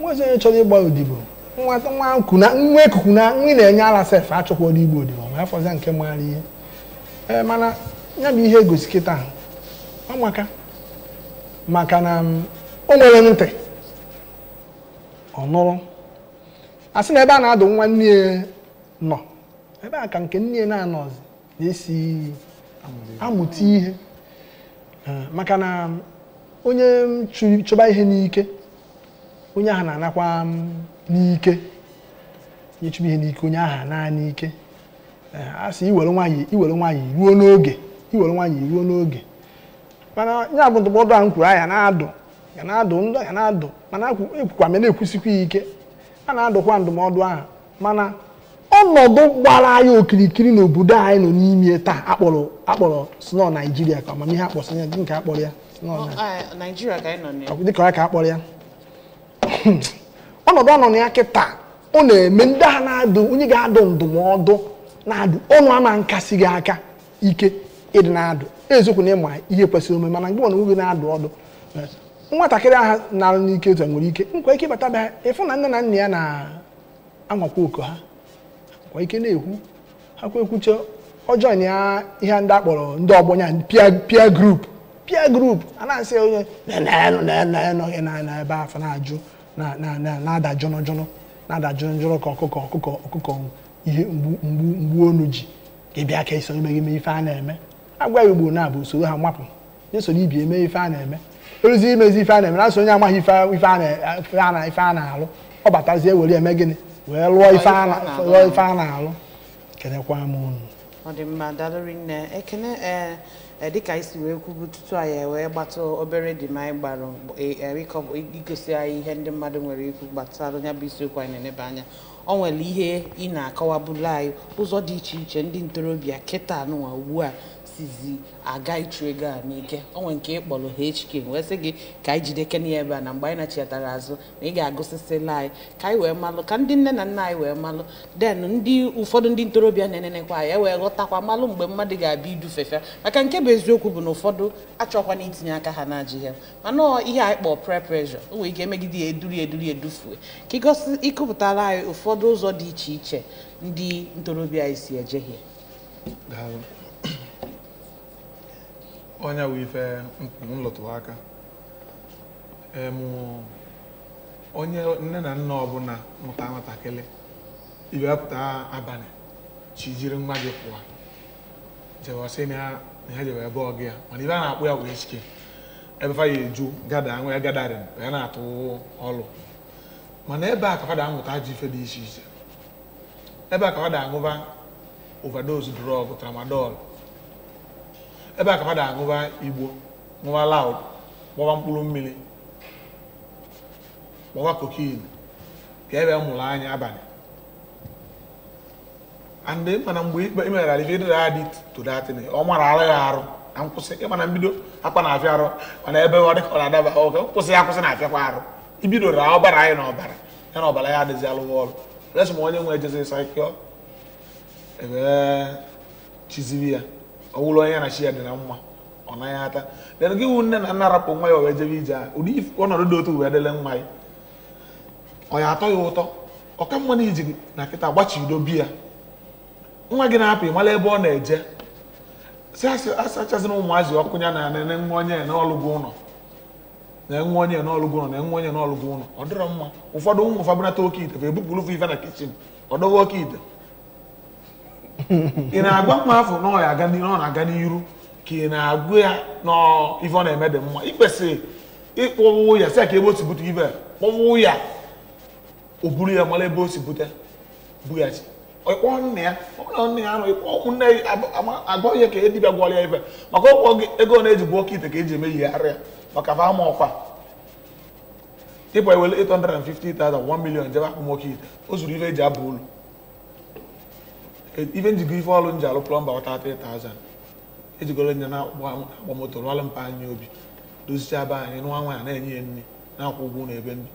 nwa ezi onye chọrọ ịgba odibo nwa nwa ekuku na nri na-enye ala sef achọkwa ọrụ igbo odibo ma afọzia nke mara ihe ee mana ya bụ ihe egosi kịta ọmaka maka na o nwere ntị ọ nụrụ sị na ebe a na-adụ nwa nne nọ ebe a ka nke nne na-anọzi na-esi amụta ihe ah, maka na mm, onye chụba ihe n'ike onye ahụ na-anakwa mm, n'ike onye chụba ihe n'ike onye ahụ na n'ike eh, a sị iwere nwaanyị iwere nwaanyị ruo n'oge iwere nwaanyị ruo n'oge mana ya bụ ndụmọdụ ahụ kwuru anya na-adụ ya na-adụ ndụ ya na-adụ mana ekwukwa m na-ekwusikwa ike a na-adụkwa ndụmọdụ ahụ mana ọnọdụ gbara anyị okirikiri n'obodo anyị nọ n'ime taa akpọrọ akpọrọ sno naijiria ka amamihe akpọsị ya nke akpọrọ ya ka anyị nọ dịka ya ka akpọrọ ya *clears throat* ọnọdụ anọ na ya kịta ọ na-eme ndị ha na-adụ onye ga-adụ ndụmọdụ na-adụ ọnụ ama nkasi gị aka ike ịdị na-adụ eziokwu na ịma ihe kwesịrị omume mana mgbe ọ na nwoge na-adụ ọdụ eh, nwatakịrị ahụ na-arụ n'ike otu nwere ike nkwa ike bata bịa ịfụ na nne na nna ya na-anwakwa oku ha kwa ike na-ekwu ha kwa ọjọọ na ihe ndị akpọrọ ndị ọgbọnya pia peer pia peer a na-asị onye nọghị ebe afọ na-ajụ na-ada jọnọjọnọ na-ada jọnọjọnọ ka ọkụkọ ọkụkọ ọkụkọ ihe mgbu mgbu onu ji ga-ebịa ka eso ime ime ife a na-eme agwa igbo na-abụ usoro ha mapụ nyesoro ibi eme ife a na-eme eruzi imezi ife a na-eme na-asị onye amaghị ife a na-alụ ọ batazie were eme gịnị wee lụọ ife a na-alụ kenekwa m unu ọ dị mma dalụri nne ekene e, e, dịka isi wee kwubu tutu anyị e wee gbata obere dị ma anyị gbara igosi anyị ihe ndị mmadụ nwere ikwu gbasara ya bụ isiokwu anyị na-eneba anya ọ nwere ihe ị na-akọwabụla anyị ụzọ dị iche iche ndị ntorobịa kịta nụwa ugbu a sizi aga ịchụ ego a n'ike onwe nke ịkpọrọ HK wee sị gị ka anyị jide kene ebe a na mgbe anyị nachiatara azụ na ị ga-agụsịsịla anyị ka anyị wee malụ ka ndị nne na nna anyị wee malụ den ndị ụfọdụ ndị ntorobịa na-enenekwa anyị e wee ghọtakwa malụ mgbe mmadụ ga-abịa idufefe maka nke bụ eziokwu bụ na ụfọdụ achọkwana itinye aka ha na ajị ya mana ihe anyị kpọọ peer pressure o nwee ike emegide ya eduri eduri edufue ka ịkụpụtara anyị ụfọdụ ụzọ dị iche iche ndị ntorobịa anyị si eje Onye wụ ife nlụtụ aka onye nne na nna ọbụla mụta nwatakịrị ibepụta abalị chi jiri nwa gị pụwa jewasị na ha jebe ebe ọgụ ya mana ibe a na-akpụ ya wee chike ebe fa ya eju gada nwa ya gadarin ya na-atụ ọlụ mana ebe a ka fada amụta ji ife dị iche iche ebe a ka fada aṅụba overdose drọg tramadọl ebe a ka mmadụ aṅụba igbo ṅụba laud gbọba mkpụrụ mmiri gbọba kokin ka ebe mụrụ anya abalị andị mana mgbe ikpe imeghara ife dịra ya dị todatịn ọ mara arụ ya arụ na nkwụsị ịmana mbido akpa na afịa arụ mana ebe ọ dịka ọ na-adaba oge nkwụsị ya akwụsị na afịakwa arụ ibido ra ọbara anyị na ọbara ya na ọbara ya adịzi alụghị ọrụ resị ma onye nwe ejezi saịkịọ ebe chiziri ya ọwụlụ onye na chi ya dị na mma ọ naghị ata dena gị wụ nne na nna rapụ nwa ya wee jebe ije a ụdị ọnọdụ dị otu wee dele nwa ya ọ ya atọ ya ụtọ ọka mma na iji na nkịta gbachido biya nwa gị na-apụ ịmala ebe ọ na-eje si asachazina ụmụazị ọkụ ya na enwe onye n'ọlụgụ ụlọ na-enwe onye n'ọlụgụ ụlọ na-enwe onye n'ọlụgụ ụlọ ọ dịrọ mma ụfọdụ ụmụ ụfabụnata oke ite bụ ebupụrụ ife na kichin ọ dọwa oke ite ị na-agwa mma afọ na ọ na-aga n'iru ka ị na-agụ ya na ife ọ na-eme dị mma ị kwesịrị ịkpọwụ ya si ka ebe o si bute ibe kpọwụ ya o buru ya mara ebe o si bute bughachi ịkpọ nna ya ọbụla nna ya nọ ịkpọ nne agwa ya ka e dibịa gwọrọ ya ife maka ọkpọ gị ego ọ na-eji bụ oke ite ka eji eme yigharị maka fa ama ọkwa ịkpọ ewere 850,000 1 million jebe akpụ nwoke ite o zuru ife eji abụ ụlọ Even njikọ ife ọrụ nji alụ plọmba ọta 3000 ejigoro nya na agba moto rụọlụ mpa anyị obi dozicha be anyị nwa nwaanyị na-enye ya nri na-akwụ ụgwọ na ebe nri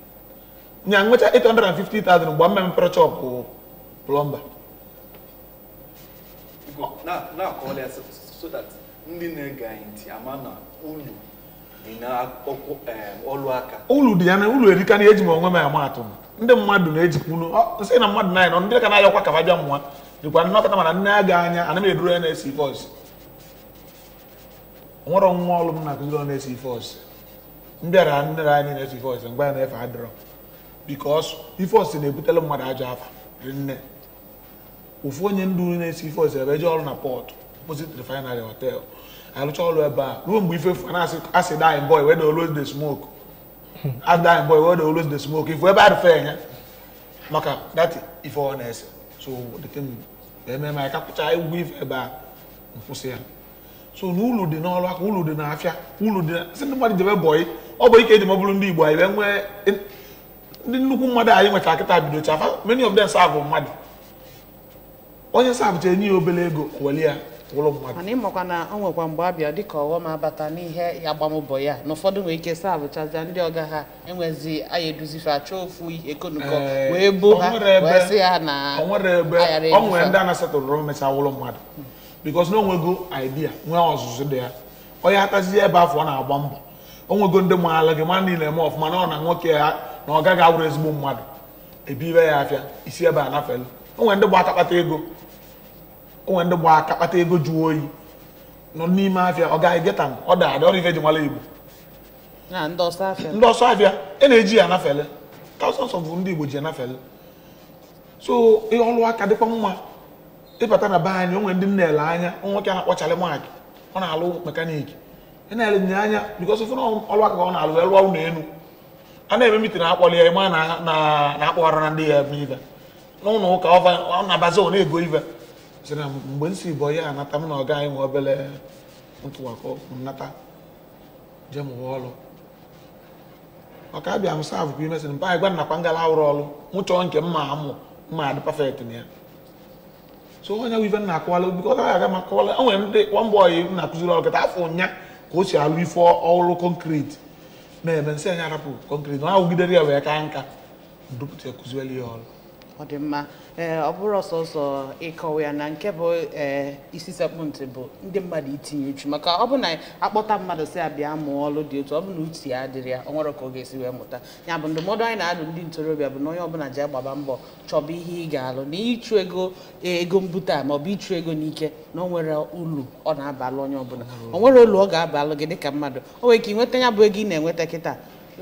nya nwecha 850,000 mgbe mma mepere chọpụ plọmba na-akọwala ya so that ndị na-ege anyị ulu dị na eh, ulu diana ulu erika na eji m onwe m ama atụ ndị mmadụ na-ejikwu nsị na mmadụ na anyị nọ ndị ka na dịkwa nnọkọta mana nne a ga anya ana m eduru ya na-esi fọs nwere nwa ọlụ m na-akụziri na-esi fọs m bịara nnere anyị na-esi fọs mgbe ya na-efe adịrọ bikos ifọs na-ebutela mmadụ ajọ afa nne ofu onye ndu na-esi fọs ebe jee ọrụ na pọtụ opposite refinery hotel arụcha ọrụ ebe a ruo mgbe ife na asị dine boy wede always the smoke asị dine boy wede always the smoke ife ebe a arụfe ya maka dati ife ọ na-ese so the thing ɛmɛ ma ɛka kuta ewi ɛba nfusi ya so na dị n'ọlụ aka ulu dị n'afịa ulu dị si ndị mmadụ jebe bọyị ọ bụ ike eji mọbụrụ ndị igbo anyị nwee ndị nnukwu mmadụ anyị nweta akịta bido chafa many of them serve mmadụ onye serve cha enye ya obere ego weli ya ụlọ mmadụ mana na ọ nwekwa mgbe abịa dịka ọghọm abata n'ihe agbamụbọ ya na ụfọdụ nwee ike sa abụchaza ndị ọga ha enwezi aya eduzife achọ ofu ekonukọ wee bo ha wee ha na ayara ọ nwere ndị a na mecha ụlọ mmadụ bikos na onwego idea nwee ọzụzụ dị ya onye hatazie ebe afọ na-agba mbọ ndị gị niile eme ọfụma na ọ na nwoke ndị ego onwe ndị gba aka kpata ego jụọ oyi nọ n'ime afịa ọ gaghị geta m ọ daadị ọrụ ife ji nwala igbo ndị ọsọ afịa e na-eji ya anafele thousands of ndị igbo ji anafele so ihe ọrụ aka dịkwa mma ịbata na be anyị onwe ndị na-ele anya nwoke a na-akpọchara maakị ọ na-alụ mekaniki ị na-ele nye anya because of ọrụ aka ka ọ na-alụ elu ụlọ elu a na-eme mitin akpọli ya ịma na akpọghara na ndị ya ebe ive n'ụlọ ụka ọ na-abazi ọ na-ego ive chere na mgbe m si bụ onye anata m na ọga anyị nwe obere ntụwakọ nata jee mụwa ọrụ maka abịa m sav kwa mba anyị gwa nakwa ngala awụrụ ọrụ m chọọ nke mma amụ mma adị pafekt na ya so onye wive na akọwala biko ọ aga ma akọwala o nwere ndị nwamba ọyị m na-akụziri ọrụ kịta afọ ụnya ka o si alụ ife ọrụ konkreti na-eme nsị anya arapụ konkreti na ahụgidere ya wee ka nka dupụta ya kụziwela ya ọrụ Ọ dị ee eh, ọ bụrụ ọsọsọ ịkọwa ya na nke bụ ee eh, isi sekpụntị bụ ndị mmadụ itinye uchu maka ọ bụ na akpọta mmadụ si abịa mụọ ọlụ dị otu ọ bụ na uche ya adịrị ya ọ nwere ka ọ ga-esi wee mụta ya bụ ndụmọdụ anyị na-adụ ndị ntorobịa bụ na onye ọbụla ji agbaba mbọ chọba ihe ị ga-alụ na ịchụ ego eh, ego mbute a ma ọ bụ ịchụ ego n'ike na ọ nwere ulu ọ na-abalụ onye ọbụla Ọ nwere olu ọ ga-abalụ gị dịka mmadụ o nwere ka ị nweta ya bụ ego ị na-enweta kịta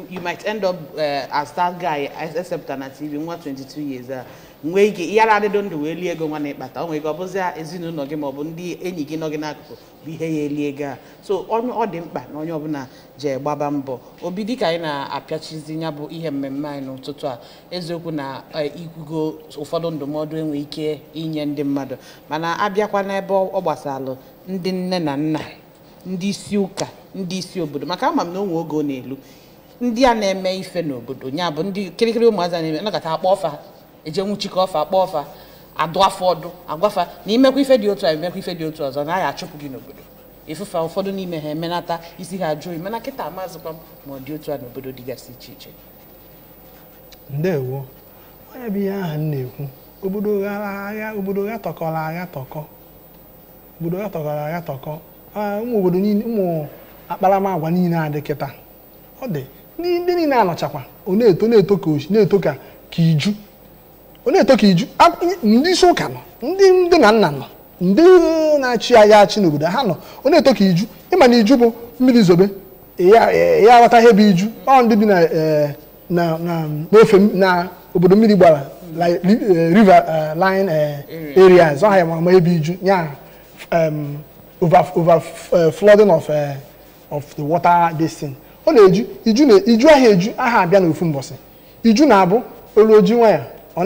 you might end up uh, as that guy except na TV nwa 22 years a uh, nwee ike ihe ara adịdo ndụ wee lie ego nwa na-ekpata o nwere ike ọ bụzia ezinụlọ gị ma ọ bụ ndị enyi gị nọ gị n'akụkụ bụ ihe ya eli ego a so ọ dị mkpa na onye ọbụla ji gbaba mbọ obi dịka anyị na-apịachizi ya bụ ihe mmemme anyị n'ụtụtụ a eziokwu na eh, ikwugo ụfọdụ ndụmọdụ enwe ike inye ndị mmadụ mana abịakwa n'ebe ọ gbasalụ ndị nne na nna ndị isi ụka ndị isi obodo maka ama m na onwe oge ọ na-elu ndị a na-eme ife n'obodo ya bụ ndị kirikiri ụmụazị na-eme nakọta akpọ ọfa eje nwuchikọ ọfa akpọ ọfa adụ afọ ọdụ agwafa na imekwa ife dị otu a imekwa ife dị otu ọzọ naghị achụpụ gị n'obodo ịfụfa ụfọdụ n'ime ha emenata isi ha ajụ mana kịta amazịkwa m ma ọ dị otu a n'obodo dịgasị iche iche ndewo onye bụ ihe ahụ m na-ekwu obodo agha obodo agha tọkọrọ agha tọkọ obodo agha tọkọrọ agha tọkọ ah, ụmụ obodo niile ụmụ akparamagwa niile adị kịta ọ dị ndị niile anọchakwa ọ na-eto na-eto ka na-eto ka iju ọ na-eto ka iju ndị isi ụka nọ ndị ndị na nna nọ ndị na-achị agha achị n'obodo ha nọ ọ na-eto ka iju ịma na iju bụ mmiri zobe ya aghọta ihe bụ iju ọ ndị bi e, n'ofe na obodo mmiri gbara e, river e, line areas ọ ha ya ma ebe iju ya over flooding of of the water basin ọ na-eju iju aha eju aha abịa n'ofu mbọsị iju na-abụ olu oji nwanyị *laughs*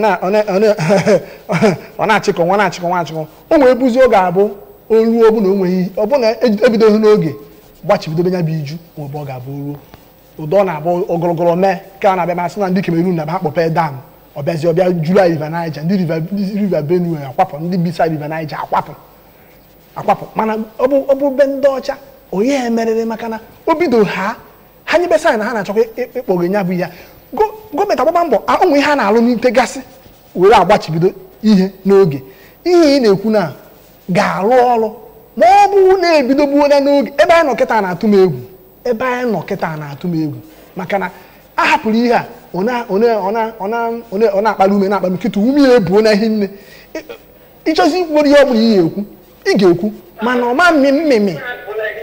ọ na-achịkọ nwa na-achịkọ nwa achịkọ o nwee buzi oge abụ olu ọbụna o nweghị ọbụna ebidoghị e n'oge gbachibidobe ya bụ iju ma ọ ga-abụ ruo ụdọ na-abụ ogologolo mee ka a na-abịa masị na ndị Cameroon na-abịa akpọpe dam ọbịazi ọbịa jula river Niger ndị river Benue akwapụ ndị bisa river Niger akwapụ akwapụ mana ọ bụ be ndị ọcha onye emerịrị maka na o bido ha ha nyebesa na ha na-achọkwa ịkpọghe e- e- e nya bụ ya gọọmenti agbaba mbọ ụmụ ihe a na-alụ n'ite gasị were agbachibido ihe n'oge ihe ị na-ekwu na ga-alụ ọrụ ma ọ bụrụ na-ebidogbuola n'oge ebe anyị nọ kịta na-atụ m egwu ebe anyị nọ kịta na-atụ m egwu maka na a hapụrụ ihe a ọ na-akpali ume na-akpa m nkịta ume ya ebuo na ihe nne ịchọzi ikwu ihe ọ bụla ihe ekwu ị ga-ekwu mana ọma mmemme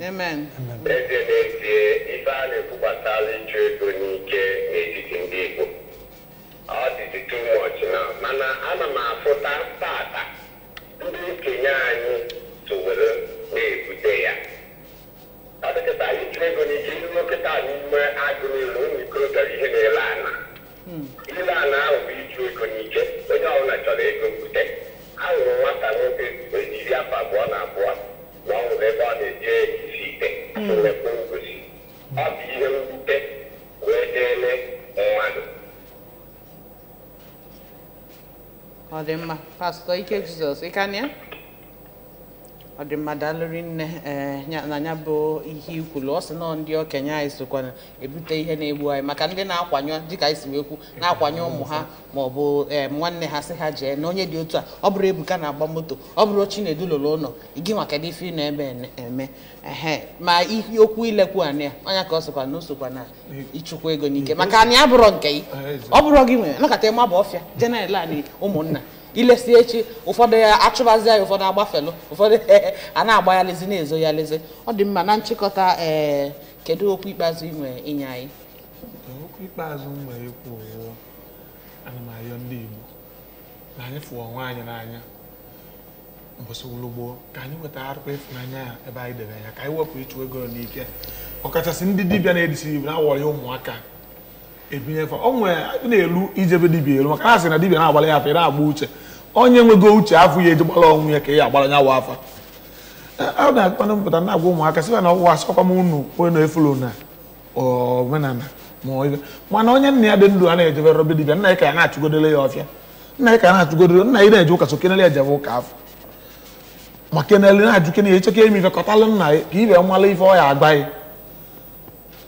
Amen. N'ezie n'ezie ife a na-ekwukwasala ịchụ ego n'ike n'etiti ndị Igbo ọ dịzi too much na mana ana m afụta tata ndị okenye anyị towere na-ebute ya ọ dịkịta ịchụ ego n'ike ihe nkịta n'ime agụ n'elu ụmụ ikorobịa ihe na-ele ile ana ahụ bụ ịchụ ego n'ike onye ọ ọbụla chọrọ ego mbute ahụrụ m nwata nwoke ejiri afọ abụọ na abụọ nwa nwere ebe a na-eje isi ite nwekwa ngosi ọ bụ ihe mwute wee deele mmadụ ọ dị mma pastọ ike jizọs ịka na ya ọdịmmadalụrinne eh, na anya bụ ihe ikwu ọ sị nọ ndị okenye anyị sokwana ebute ihe na-egbu anyị maka ndị na-akwanyụ dịka anyị si ekwu na-akwanye ụmụ ha ma ọ bụ eh, nwanne ha sị ha jee na onye dị otu a ọ bụrụ Ebuka na-agba moto ọ bụrụ Chinedu lụrụ ụlọ gị nwa kedu ife na-ebe eme ehe ma ihe okwu ilekwu anị a anya ka ọ sokwa na o na ịchụkwa ego n'ike maka anyị abụrọ nke gị ọ bụrọ gị nwere nakọta ịma bụ ọfịa jenel anyị ụmụnna ilesi echi ụfọdụ ya achụbazi ya ụfọdụ agbafelu ụfọdụ *laughs* a na-agba ya lezi na-ezo ya lezi ọ dị mma na nchịkọta ee eh, kedu okwu ikpeazụ ị nwere inye anyị okwu ikpeazụ m nwere ikwu ana m ndị Igbo na anyị fụọ onwe anyị n'anya mbọsị ulugboo ka anyị weta arụkwa ịfụnanya ya ebe anyị dere ya ka anyị wepụ ịchụ ego n'ike ọkachasị ndị dibịa na-edisi Igbo na-awọrị ụmụaka ebinye fa o nwere a na-elu ijebe dibia elu maka ha sị na dibia na-agbara ya afa ị na-agba uche onye nwego uche afọ ya eji gbara ọnwụ ya ka ya agbara nyawa afa a na-akpana mpụta na-agwa ụmụaka sị na ọwụwa asọkwa m unu onye na-efulu na omenala ma ibe mana onye nna ya dị ndụ a na-ejebe robe dibia nna ya ka ya na-achụgodere ya ọfịa nna ya ka ya na-achụgodere nna ya na-eje ụka so kenele ejebe ụka afọ ma kenele na-ajụ kenele echeke ime ife kọtalụ nna ya ka ibe mmalụ ife ọ agbaghị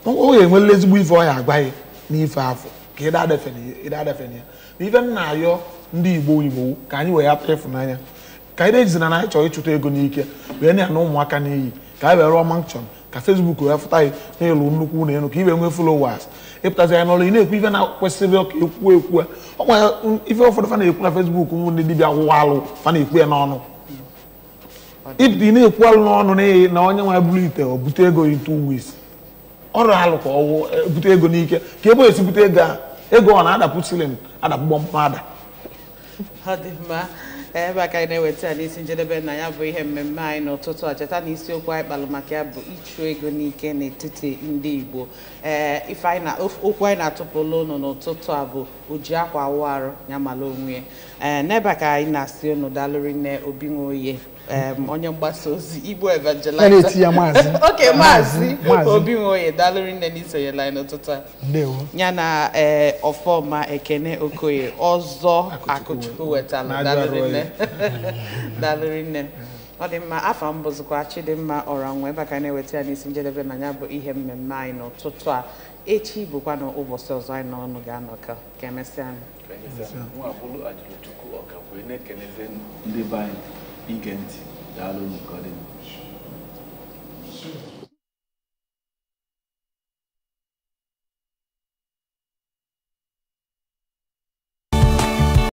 ọ ga-enwele ezigbo ife ọ agbaghị n'ife afọ ka ịda adafe na ya ma ife m na-ayọ ndị igbo igbo ka anyị wee hapụ ịfụnanya ka anyị na ejizina na anyị chọrọ ịchụta ego n'ike wee na-ana ụmụaka n'iyi ka anyị wee rụọ mankshọn ka fesbuk wee fụta anyị na nnukwu na elu ka ị wee nwee followers ịpụtazi ya n'ọrụ ị na-ekwu ife na-akwesịrị ka ekwu ekwu ọ gwara ife ụfọdụ fa na-ekwu na fesbuk ụmụ ndị dibịa gwụwa alụ fa na-ekwu ya n'ọnụ ịpụta ị na-ekwu alụ n'ọnụ na onye nwa bụrụ ite o bute ego into weeks ọrụ alụ ka ọwụ e, bute ego n'ike ka ebe esi ego a ego ọ na-adapụ silin adapụ gbọmkpọ ọ dị mma ebe a ka anyị na-eweta ya n'isi njedebe na ya bụ ihe mmemme anyị n'ụtụtụ a cheta na isiokwu anyị kpalụ maka ya bụ ịchụ ego n'ike n'etiti ndị Igbo ee anyị na okwu anyị na-atụpụla ụnụ n'ụtụtụ a bụ oji akwa awụ arụ ya onwe ya ee n'ebe a ka anyị na-asị ụnụ dalụrị nne obi nwoye onye mgbasa ozi Igbo evangelizer *laughs* oke maazị obi nwoye dalụri nne n'isonye la n'ụtụtụ a ya na ee ọfọma ekene okoye ọzọ akụchukwu wetala dalụri *laughs* nne ọ dị mma afa mbụzụkwa bụzikwa chidimma ọra nwe ebe ka na-eweta ya n'isi njedebe na ya bụ ihe mmemme anyị n'ụtụtụ a echi bụkwa na ụbọchị ọzọ anyị n'ọnụ ga-anọkọ ka emesịa e anyị ige ntị daalụ nke